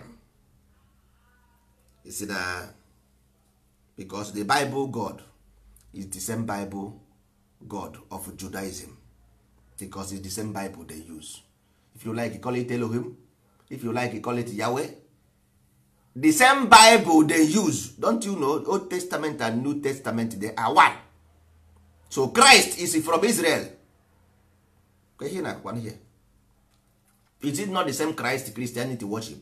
you see na because the bible god is the same bible god of judaism because it's the same bible they use if you like call it Elohim if you like you call it yahweh the same bible they use don't you know old testament and new testament they are one so christ is from israel question one here is it not the same christ christianity worship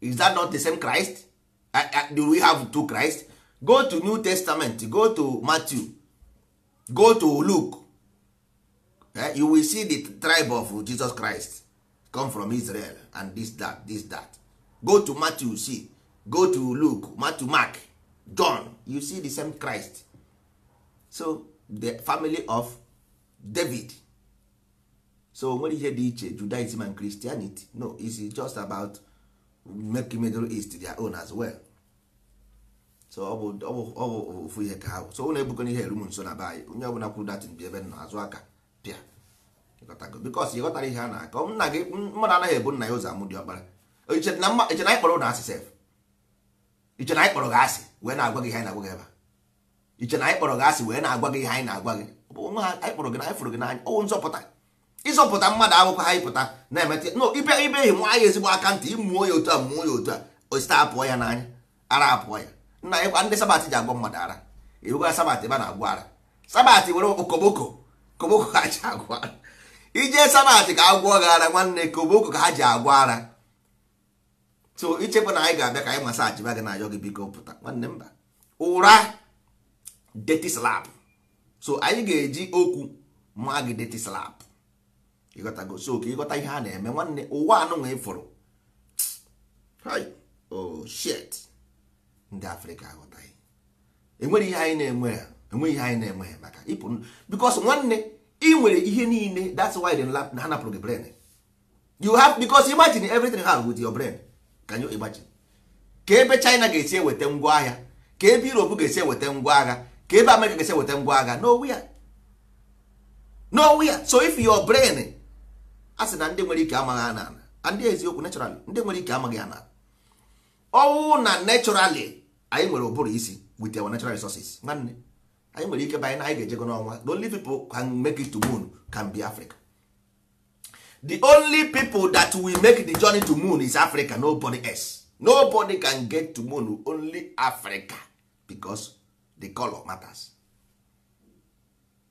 is that not the same christ do we have two christ go to new testament go to matthew go to luke eh, you will see the tribe of jesus christ come from israel and this that this that go to matthew see go to luke matthew mark john you see the same christ so the family of david so nwere ihe dị iche judaism and christianity no is just about make middle east their own as well so ọ bụ ofu ihe ka ha so ụlọ ebukọ na ihe eru nso na be onye ọbụla kwuru datin bi ebe nọ azụ aka pịa bikos ịghọtara ihe a na-akọ nna gị mmadụ anaghị ebu nna ya ụzọ amụ dị ọkpara iche na anyị na ụlọ asị sef iche na anyị gị asị wee na-agwa gị ihe na-agwa gị ebe iche na anyị gị asị wee na-agwa gị ihe anyị na-agwa gị onwe ha gị na anyị gị n'anya ọwụ nzọpụta ịzọpụta mmadụ akwụkwọ ha pụta na-emeta no ibe ibe ihi nwa ya ezigbo aka ntị ịmụọ ya otu a mụọ ya otu a osite apụọ ya n'anya ara apụọ ya nna anyị ndị sabat ji agwọ mmadụ ara ewegwa sabat ebe a na-agwọ ara sabat were okoboko koboko kacha agwọ ara ije sanat ka agwọ gị ara nwanne ka obooko ka ha ji agwọ ara so ichekwa na anyị ga-abịa ka anyị masaji gị na ayọ gị biko pụta nwanne mba ụra deti slap so anyị ga-eji okwu ma gị deti slap ịghọtago so ka ịghọta ihe a na-eme nwanne ụwa anụnwa ịfụrụ oh shit ndị afrịka aghọtaghị enweghị ihe anyị na-enwe ha enweghị ihe anyị na-enwe ha maka ịpụ bikos nwanne i nwere ihe niile that's why the lab na ha gị brain you have because imagine everything ha with your brain can you imagine ka ebe China ga-esi eweta ngwa agha ka ebe Europe ga-esi eweta ngwa agha ka ebe America ga-esi eweta ngwa agha nowhere ya so if your brain a sị na ndị nwere ike amaghị ana ana ndị eziokwu naturally ndị nwere ike amaghị ana ọwụ na naturally anyị nwere ụbụrụ isi with our natural resources nwanne anyị nwere ike banye na anyị ga-ejego n'ọnwa the only people can make it to moon can be Africa the only people that will make the journey to moon is Africa nobody else nobody can get to moon only Africa because the color matters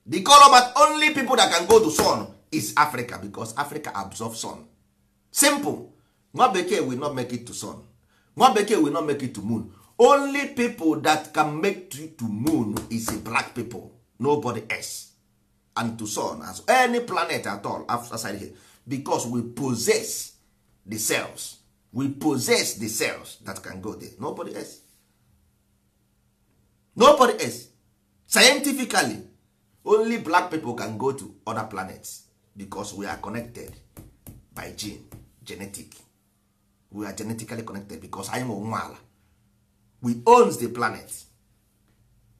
the color but only people that can go to sun is Africa because Africa absorbs sun simple nwa bekee will not make it to sun nwa bekee will not make it to moon only people that can make to to moon is a black people nobody else and to sun as any planet at all outside here because we possess the cells we possess the cells that can go there nobody else nobody else scientifically only black people can go to other planets because we are connected by gene genetic we are genetically connected because anyị nwe nwa ala we owns the planet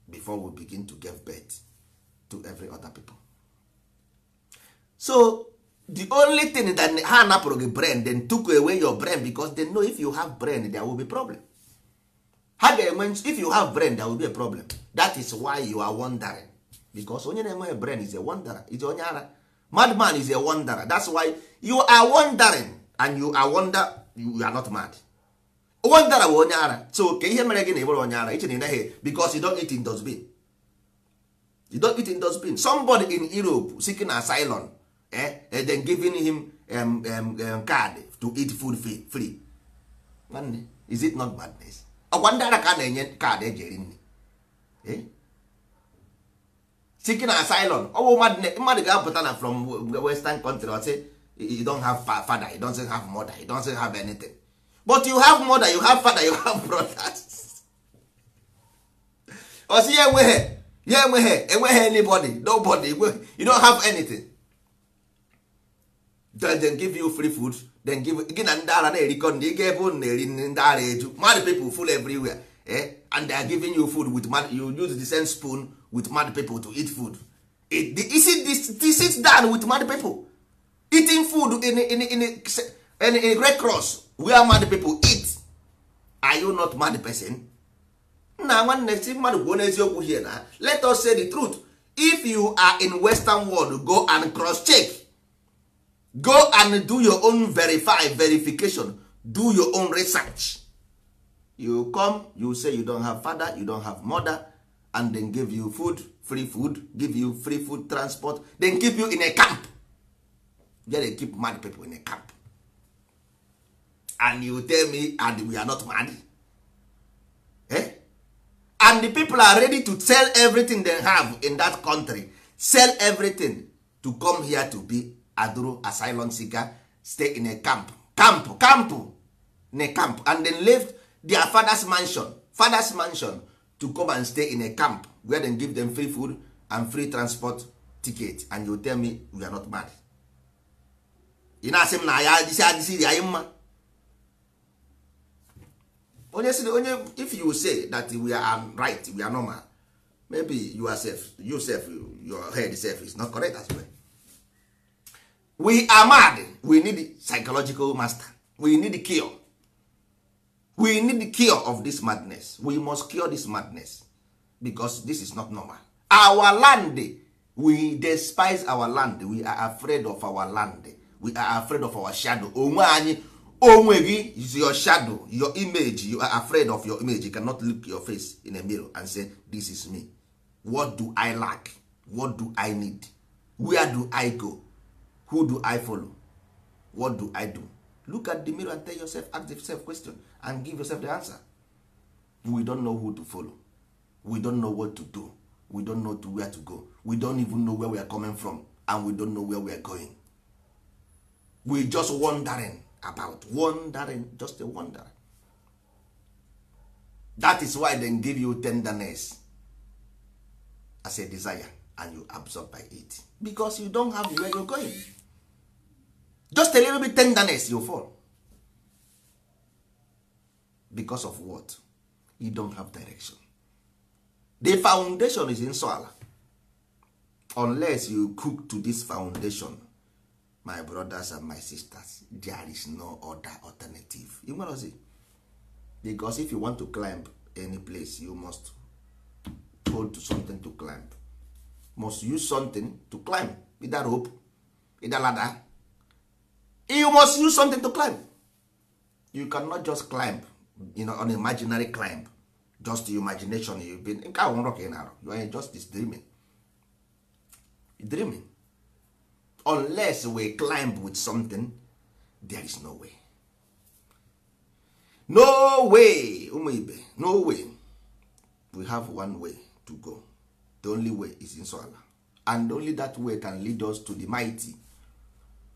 before we begin to give birth to every other people so the only thing that ha napụrụ gị brain then took away your brain because they know if you have brain there will be problem ha ga-enwe if you have brain there will be a problem that is why you are wondering because onye na-enweghị brain is a wanderer is onye ara madman is a wonderer that's why you are wondering and you are wonder you are not mad onwe ndara bụ onye ara so ke ihe mere gị na ịbụrụ onye ara iche na ịnaghị because you don't eat in dustbin you don't eat in dustbin somebody in Europe seeking asylum eh, and giving him um, um, um, card to eat food free, is it not madness ọkwa ndị ara ka na-enye kaadị eji eri nri eh? seeking asylum ọ mmadụ ga-apụta na from western country ọ sị you don't have father you don't have mother you don't have anything but you have mother you have father you have brothers osi ya enweghị ya enweghị enweghị anybody nobody you don't have anything then they give you free food then give gị na ndị ara na-erikọ ndị ebe ụnụ na-eri ndị ara eju mad people full everywhere eh? and they are giving you food with mad, you use the same spoon with mad people to eat food it, is see this, this sit down with mad people eating food in, a in, in, in, in, in, in red cross where mad people eat are you not mad person nna nwanne si mmadụ kwuo n'eziokwu here na let us say the truth if you are in western world go and cross check go and do your own verify verification do your own research you come you say you don't have father you don't have mother and then give you food free food give you free food transport then keep you in a camp there they keep mad people in a camp and you tell me and we are not mad eh? and the people are ready to sell everything they have in that country sell everything to come here to be aduro asylum seeker stay in a camp camp camp in a camp and then left their father's mansion father's mansion to come and stay in a camp where they give them free food and free transport ticket and you tell me we are not money ị na-asị m na ya adịsị adịsị anyị mma onye si onye if you say that we are right we are normal maybe you are safe you safe your head self is not correct as well we are mad we need psychological master we need cure we need cure of this madness we must cure this madness because this is not normal our land we despise our land we are afraid of our land we are afraid of our shadow onwe anyị onwe gị is your shadow your image you are afraid of your image you cannot look your face in a mirror and say this is me what do i lack what do i need where do i go who do i follow what do i do look at the mirror and tell yourself ask yourself question and give yourself the answer we don't know who to follow we don't know what to do we don't know to where to go we don't even know where we are coming from and we don't know where we are going we just wondering about wondering just a wonder that is why they give you tenderness as a desire and you absorb by it because you don't have where you're going just a little bit tenderness you fall because of what you don't have direction the foundation is in soil unless you cook to this foundation my brothers and my sisters there is no other alternative you know see because if you want to climb any place you must hold something to climb must use something to climb either rope either ladder you must use something to climb you cannot just climb you know, on imaginary climb just your imagination you've been nke ahụ nrọ ka ị na you are just this dreaming dreaming unless we climb with something there is no way no way ụmụ ibe no way we have one way to go the only way is in ala and only that way can lead us to the mighty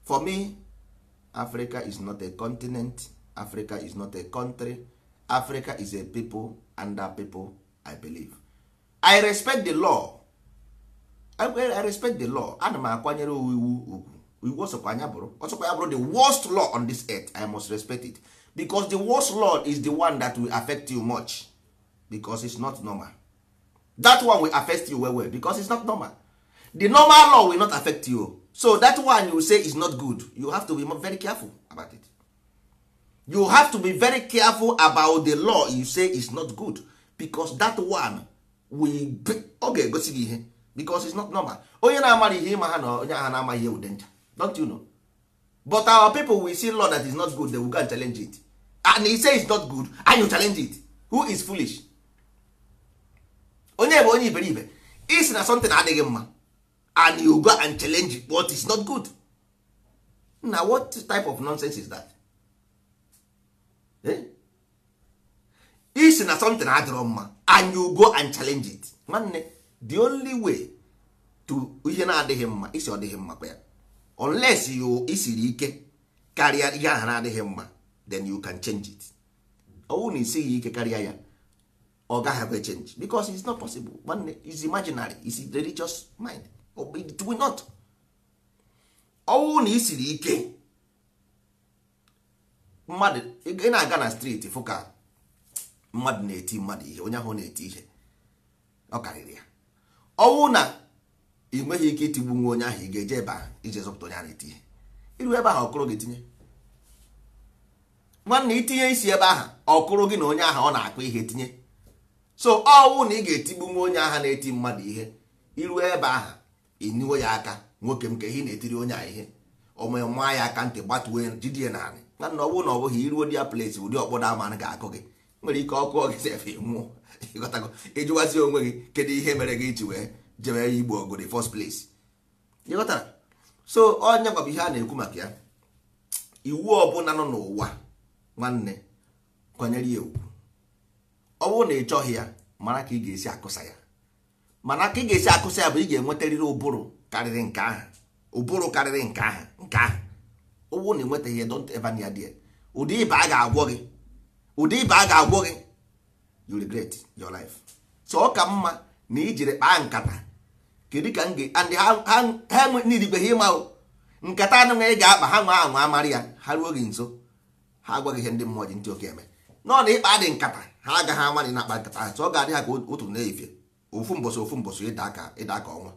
for me africa is not a continent africa is not a country africa is a people and that people i believe i respect the law I respect the law ana m akwanyere iwu ugwu iwu ọsọkwa anya bụrụ ọsọkwa ya bụrụ the worst law on this earth I must respect it because the worst law is the one that will affect you much because it's not normal that one will affect you well well because it's not normal the normal law will not affect you so that one you say is not good you have to be very careful about it you have to be very careful about the law you say is not good because that one will ọ ga-egosi gị ihe because it's not normal onye na-amara ihe ịma ha na onye agha na-amaghị ewu denja don't you know but our people will see law that is not good they will go and challenge it and he say is not good and you challenge it who is foolish onye bụ onye iberibe is na something adịghị mma and you go and challenge it, what is not good na what type of nonsense is that eh? Is na something adịrọ mma and you go and challenge it nwanne the only way to ihe na-adịghị mma isi ọ dịghị mma kwa ya unless you isiri ike karịa ihe ahụ na-adịghị mma then you can change it ọwụ na isighị ike karịa ya ọ gaghị change because it's not possible nwanne is imaginary is religious mind it will not ọwụ na isiri ike mmadụ ị na-aga na streeti fụ ka mmadụ na-eti mmadụ ihe onye ahụ na-eti ihe ọ karịrị ya ọnwụ na ị nweghị ike itigbu nwa onye ahụ ị ga-eje ebe ahụ ije zọpụta onye ahụ itinye iru ebe ahụ ọkụrụ gị tinye nwanne itinye isi ebe ahụ ọkụrụ gị na onye ahụ ọ na akpa ihe tinye so ọnwụ na ị ga-etigbu nwa onye ahụ na-eti mmadụ ihe iru ebe ahụ ịniwo ya aka nwoke m ka ihe na-etiri onye ahụ ihe ome ya aka ntị gbatuo jidie naanị nwanne ọ na ọ bụghị iruo di ya plesi ụdị ọkpọda ama ga-akụ gị nwere ike ọkụ ọgịzefe nwụọ ịghọtago ịjụwazi onwe gị kedu ihe mere gị iji wee jebe igbo ọgụ the first place ịghọtara so onye gwabụ ihe a na-ekwu maka ya iwu ọbụla nọ n'ụwa nwanne kwanyere ya ugwu ọ bụrụ na ị chọghị ya mara ka ị ga-esi akụsa ya mana ka ị ga-esi akụsa ya bụ ị ga-enwetarịrị ụbụrụ karịrị nke ahụ ụbụrụ karịrị nke ahụ nke ahụ ọ bụrụ na enwetaghị nwetaghị ya don't ever near there ụdị ịba a ga-agwọ gị ụdị ibe a ga-agwọ gị you regret your life so ọ ka mma na ijiri kpaa nkata kedu ka and ha nirigweghị ịma nkata anụghị ị ga-akpa ha nwa anwa amarị ya ha ruo gị nso ha agwaghị ihe ndị mmụọ ji ntị oke eme nọ na ịkpa dị nkata ha agaghị ama dị na-akpa nkata so ọ ga-adị ha ka otu na-efe ofu mbọsị ofu mbọsị ịda aka ịda aka ọnwa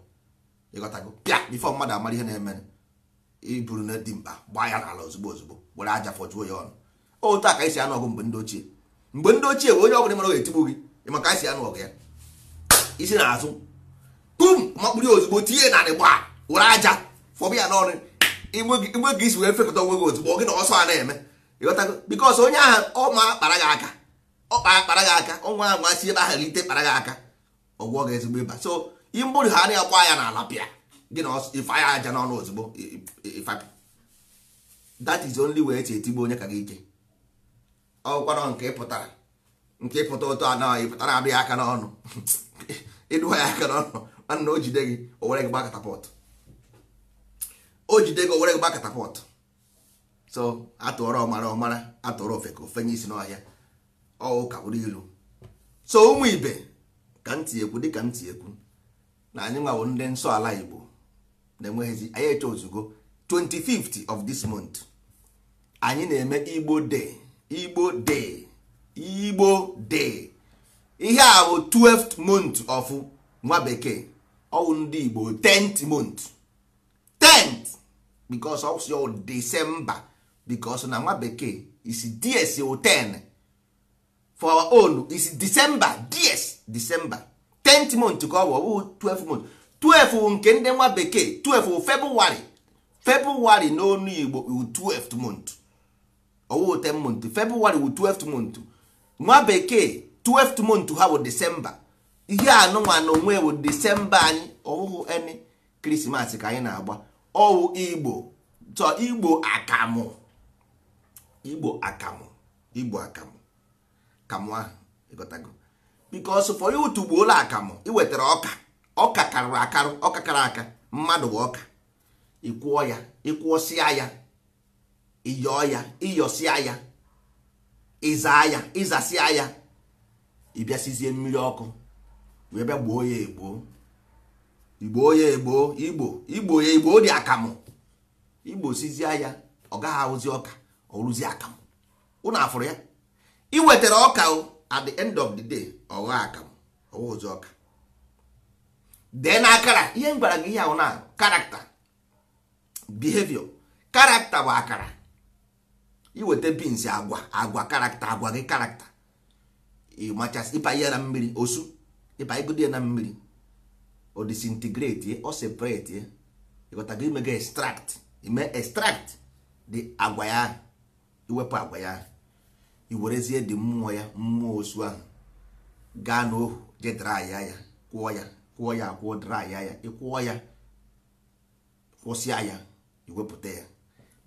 pịa bifọ mmadụ amara ihe na-eme iburu na dimkpa gbaa ya n'ala ozugbo ozugbo were aja fọjuo ya ọnụ otu a ka esi anụ ọgụ mgbe ndị ochie mgbe ndị ochie bụ onye ọbụla mara ga-etigbu gị maka anyị si anụ ọgụ ya isi na azụ pum makpụrụ ya ozugbo tinye narị gba were aja fọbụ ya n'ọrụ igwe gị isi wee fekọta onwe gị ozugbo gị na ọsọ a na-eme ịghọtago bikos onye ahụ ọma kpara gị aka ọkpa kpara gị aka ọnwa ahụ asị ebe ahụ ite kpara gị aka ọgwụọ gị ezigbo ịba so imbụrụ ha na akwa ya n'ala pịa gị na ife aja n'ọnụ ozugbo ifapị that is only way esi etigbu onye ka gị ike ọgwụkwarọ nke ịpụtara nke ịpụta ụtọ anọ ịpụtara abịa aka n'ọnụ ịdụwa ya aka n'ọnụ mana o jide gị o were gị gba katapọtụ o jide gị o were gị gba katapọtụ so atụọrọ ọmara ọmara atụọrọ ofe ka ofenye isi n'ọhịa ọwụ ka bụrụ ilu so ụmụ ibe ka ntị ekwu dịka ntị ekwu na anyị nwawo ndị nsọ ala igbo na-enweghịzi anyị eche ozugbo 25th of this month anyị na-eme igbo de. igbo day igbo day ihe a bụ 12th month of nwa bekee ọwụ ndị igbo 10th month 10th because of your december because na nwa bekee is ds 10 for our own is december ds december 10th month ka ọ bụ ọbụghị 12 month 12 th nke ndị nwa bekee 12 february february n'onu igbo 12th month owo 10 month february wu 12 month nwa bekee 12 th month ha bụ december ihe anụnwa na onwe bụ december anyị ọwụhụ eni krismas ka anyị na-agba ọwụ igbo so igbo akamụ igbo akamụ igbo akamụ kamụ ahụ ịgotago because for you tugbuola akamụ ị wetara ọka ọka karịrị akarụ ọka kara aka mmadụ bụ ọka ịkwụọ ya ịkwụọsịa ya ịyọọ ya ịyọsịa ya ịzaa ya ịzasịa ya ịbịasịzie mmiri ọkụ wee bịa gboo ya egboo igbo ya egboo igbo igbo ya igbo dị akamụ igbo sizie ya ọ gaghị ahụzi ọka ọ rụzi akamụ ụnụ afụrụ ya ị wetara ọka at the end of the day ọ gha akamụ ọ wụzi ọka dee na akara ihe m gwara gị ihe ahụ na karakta behavior karakta bụ akara iweta bins agwa agwa karakta agwa gị karakta ịmachasị ịpa ihe na mmiri osu ịpa igodo ya na mmiri o disintegrate o separate imega imego extract ime extract dị agwa ya iwepụ agwa ya iwerezie dị mmụọ ya mmụọ osu ahụ gaa n'ohu je draya ya kwụọ ya kwụọ ya akwụọ draya ya ịkwụọ ya kwụsịa ya iwepụta ya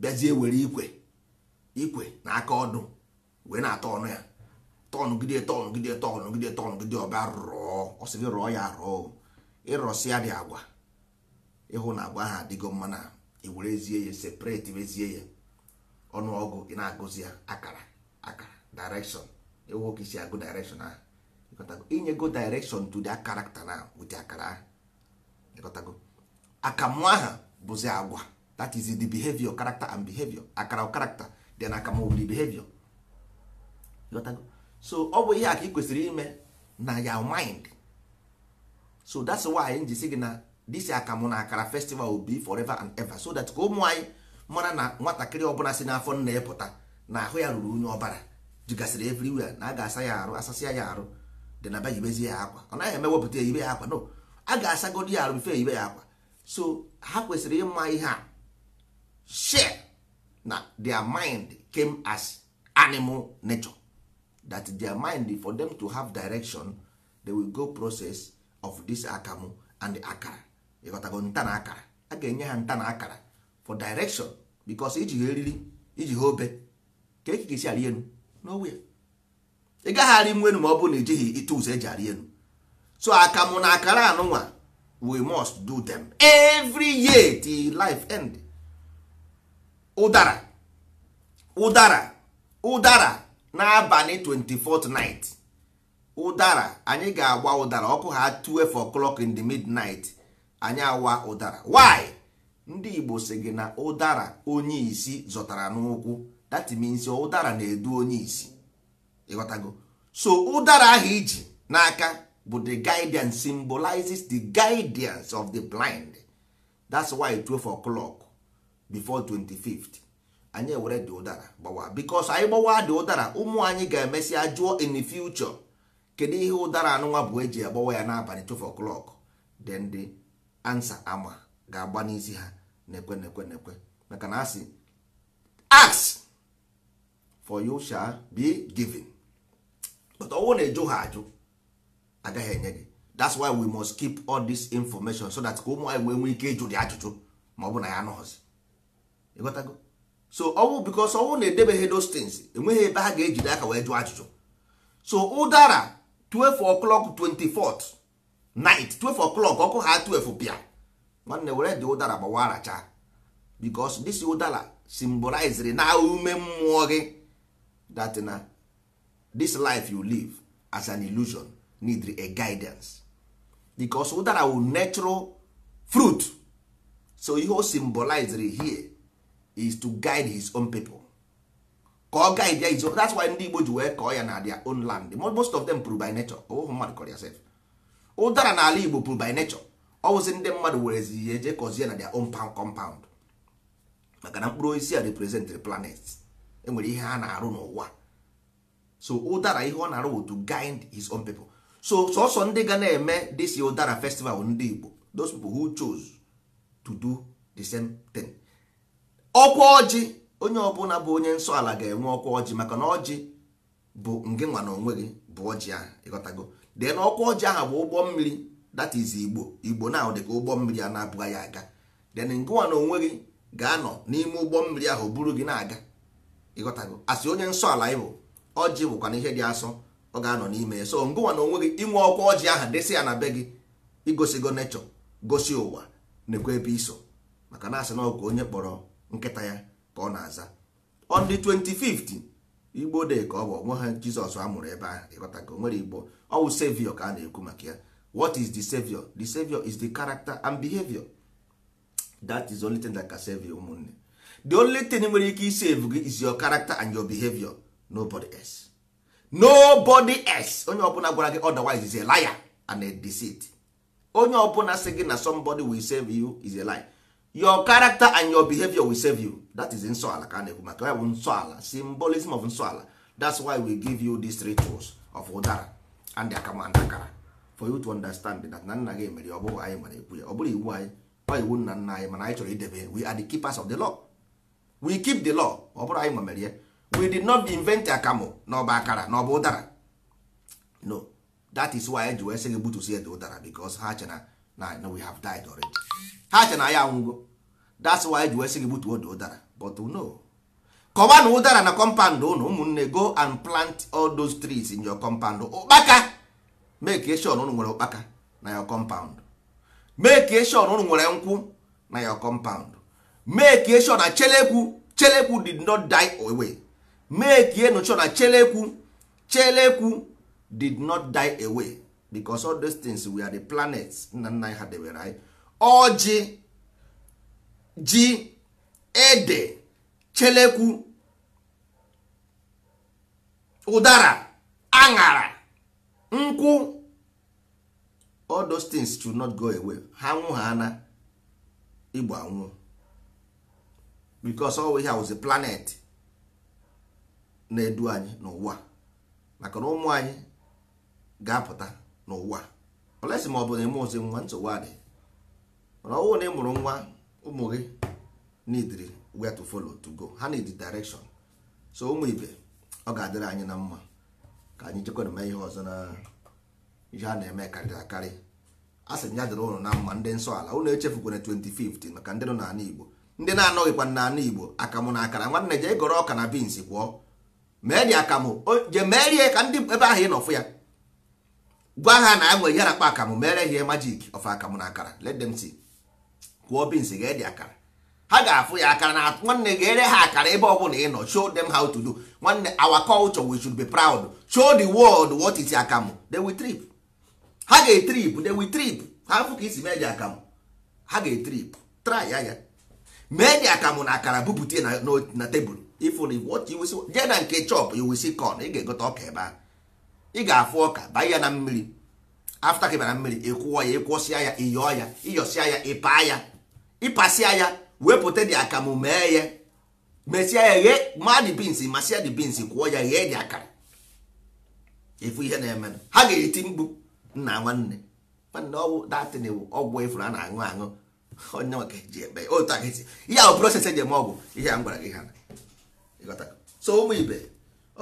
bịazie were ikwe ikwe na aka ọdụ wee na ata ọnụ ya tọngide tọngide tọngide tọngide ọba rụọ ọsịrị rụọ ya rụọ ịrọsịa dị agwa ịhụ na agwa ha adịgo mma na ewerezie ya separate wezie ya ọgụ ị na-agụzi ya akara akara direction ịhụ ka isi agụ direction ahụ inyego direction to the character na with akara ahụ ịkọtago akamụ aha bụzi agwa that is the behavior character and behavior akara character then na will behavior so ọ bụ ihe a ka ị kwesịrị ime na ya mind so that's why anyị ji gị na this akamụ na akara festival will be forever and ever so that ka ụmụ anyị mara na nwatakịrị ọbụla si n'afọ nna ịpụta na ahụ ya ruru unyi ọbara jigasịrị everywhere na a ga-asa ya arụ asasịa ya arụ dị na bayibezie ya akwa ọ naghị eme wepụta ya ibe ya akwa no a ga-asagodi ya arụ mfe ibe ya akwa so ha kwesịrị ịma ihe a share na their mind came as animal nature that their mind for them to have direction they will go process of this akamu and akara ịghọtago nta na akara a ga-enye ha nta na akara for direction because iji ha eriri iji ha obe ka eke ga-esi arị elu n'owe ị gaghị arị ma ọ bụrụ na ejighị ite ụzọ eji arị enu? so akamụ na akara anụnwa we must do them every year till life end ụdara ụdara ụdara n'abalị 24th ụdara anyị ga agba ụdara ọkụ ha 2 o'clock in the midnight anyị awa ụdara why ndị Igbo sị gị na ụdara onye isi zọtara n'ụkwụ that means ụdara na-edu onye isi ịghọtago so ụdara ahụ iji n'aka bụ the guidance symbolizes the guidance of the blind that's why 12 o'clock before 25th anyị ewere dị ụdara gbawa because anyị gbawa dị ụdara ụmụ anyị ga emesị ajụọ in the future kedu ihe ụdara anụnwa bụ eji agbawa ya n'abalị 12 clock then the answer ama ga-agba n'isi ha na-ekwe na-ekwe maka na asị ask for you shall be given but ọnwụ na-ejụ ha ajụ agaghị enye gị that's why we must keep all this information so that ka ụmụ anyị wee nwee ike ịjụ dị ajụjụ ma ọ bụ na ya anụghọzi ịghọtago so ọnwụ bikos ọnwụ na-edebeghị those things enweghị ebe ha ga eji aka wee jụọ ajụjụ so ụdara 12 o'clock 24th night 12 o'clock ọkụ ha 12 bịa nwanne were dị ụdara gbawa aracha bikos dis ụdara re na ume mmụọ gị that na this life you live as an illusion need a guidance bikos ụdara wu natural fruit so ihe o re here is to guide his own people ka ọ guide ya izo that's why ndị Igbo ji wee kọọ ya na their own land most of them prove by nature ọwụhụ oh, mmadụ kọrọ ya sef ụdara n'ala Igbo prove by nature ọ wụsị ndị mmadụ werezi ya eje kọzie na their own compound maka na mkpụrụ osisi a represent the planet enwere ihe ha na-arụ n'ụwa so ụdara ihe ọ na-arụ to guide his own people so sọsọ ndị ga na-eme this ụdara festival ndị Igbo those people who chose to do the same thing. ọkwa ọjị onye ọbụla bụ onye nsọ ala ga-enwe ọkwa ọjị maka na ọjị bụ nge nwa na onwe gị bụ ọjị ahụ ịghọtago dee na ọkwa ọjị ahụ bụ ụgbọ mmiri that is igbo igbo na dị ka ụgbọ mmiri a na-abụghị ya aga then ngụnwa na onwe gị ga-anọ n'ime ụgbọ mmiri ahụ buru gị na-aga ịghọtago asị onye nsọ ala ịbụ ọjị bụkwa na ihe dị asọ ọ ga-anọ n'ime ya so ngụnwa na onwe gị inwe ọkwa ọjị ahụ desị ya na be gị igosigo nechọ gosi ụwa nekwa ebe iso maka na asị na ọgụ onye kpọrọ nkịta ya ka ọ na-aza on the 25th igbo de ka ọ bụ onwe ha jizọs amụrụ ebe ahụ ịghọta ka o nwere igbo ọ wụ savior ka a na-ekwu maka ya what is the savior the savior is the character and behavior that is the only thing that can save you ụmụnne the only thing nwere ike isave gị is your character and your behavior nobody else nobody else onye ọbụla gwara gị otherwise is a liar and a deceit onye ọbụla sị gị na somebody will save you is a lie your character and your behavior will save you that is nsọala ka a na-ekwu maka bụ nsọala symbolism of nsọala that's why we give you these three tools of ụdara and and akara for you to understand that na nna gị mere ọ bụghị anyị mara ekwu ya ọ bụrụ iwu anyị ọ iwu nna nna anyị mana anyị chọrọ idebe we are the keepers of the law we keep the law ọ bụrụ anyị nwemere ya we did not invent akamụ na ọba akara na ọba ụdara no that is why e ji wee sị gị gbutusie dị ụdara because ha che na na we have died already ha che na ya anwụgo that's why ji wee sị gị gbutuo dị ụdara but no kọwa na ụdara na compound ụnụ ụmụnne go and plant all those trees in your compound ụkpaka make sure ụnụ nwere ụkpaka na your compound make sure ụnụ nwere nkwụ na your compound make sure na chelekwu chelekwu did not die away make sure na chelekwu chelekwu did not die away because all those things we are the planets nna nna anyị ha debere eh? anyị ọjị ji ede chelekwu ụdara aṅara nkwụ all those things should not go away ha nwụ ha ana igbo anwụ because all we have is a planet na-edu anyị n'ụwa maka na ụmụ anyị ga-apụta n'ụwa olesi ma ọ bụ na eme ozi nwa nsogbu adị mana ọnwụ na ị mụrụ nwa ụmụ gị need where to follow to go ha need direction so ụmụ ibe ọ ga-adịrị anyị na mma ka anyị jekwana ma ihe ọzọ na ihe a na-eme karịrị akarị a sị ya dịrị ụnụ na mma ndị nsọ ala ụnụ echefukwana 2050 maka ndị nọ n'ala Igbo ndị na-anọghịkwa n'ala Igbo akamụ na akara nwanne jee gọrọ ọka na bins kwụọ mee dị akamụ jee mee ka ndị ebe ahụ ị nọ fụ ya gwa ha na anwe yara kpa akamụ mere ihe majik of akamụ na akara let them see kwụọ bins ga-ede akara ha ga-afụ ya akara na nwanne ga-ere ha akara ebe ọ bụla ị nọ show them how to do nwanne our culture we should be proud show the world what is akamụ they will trip ha ga-etrip they will trip ha fụ ka isi mee dị akamụ ha ga-etrip try ya ya mee dị akamụ na akara bupute na tebụl ifụ na what you will jee na nke chop you will see ị ga-egote ọka ebe ahụ ị ga-afụ ọka banye ya na mmiri afta ka mmiri ịkwụọ ya ịkwụsịa ya ịyọọ ya ịyọsịa ya ịpaa ya ịpasịa ya wepụta dị akamụ mee ya mesịa ya ghee maa dị bins masịa dị bins kwụọ ya ghee dị akara efu ihe na-eme ha ga-eti mkpu nna nwanne nwanne ọgwụ datin ewu ọgwụ efuru a na-aṅụ aṅụ onye maka ji ebe otu aka esi ihe ahụ proses eji eme ọgwụ ihe a m gwara gị ha so ụmụ ibe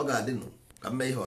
ọ ga-adịnụ ka m ihe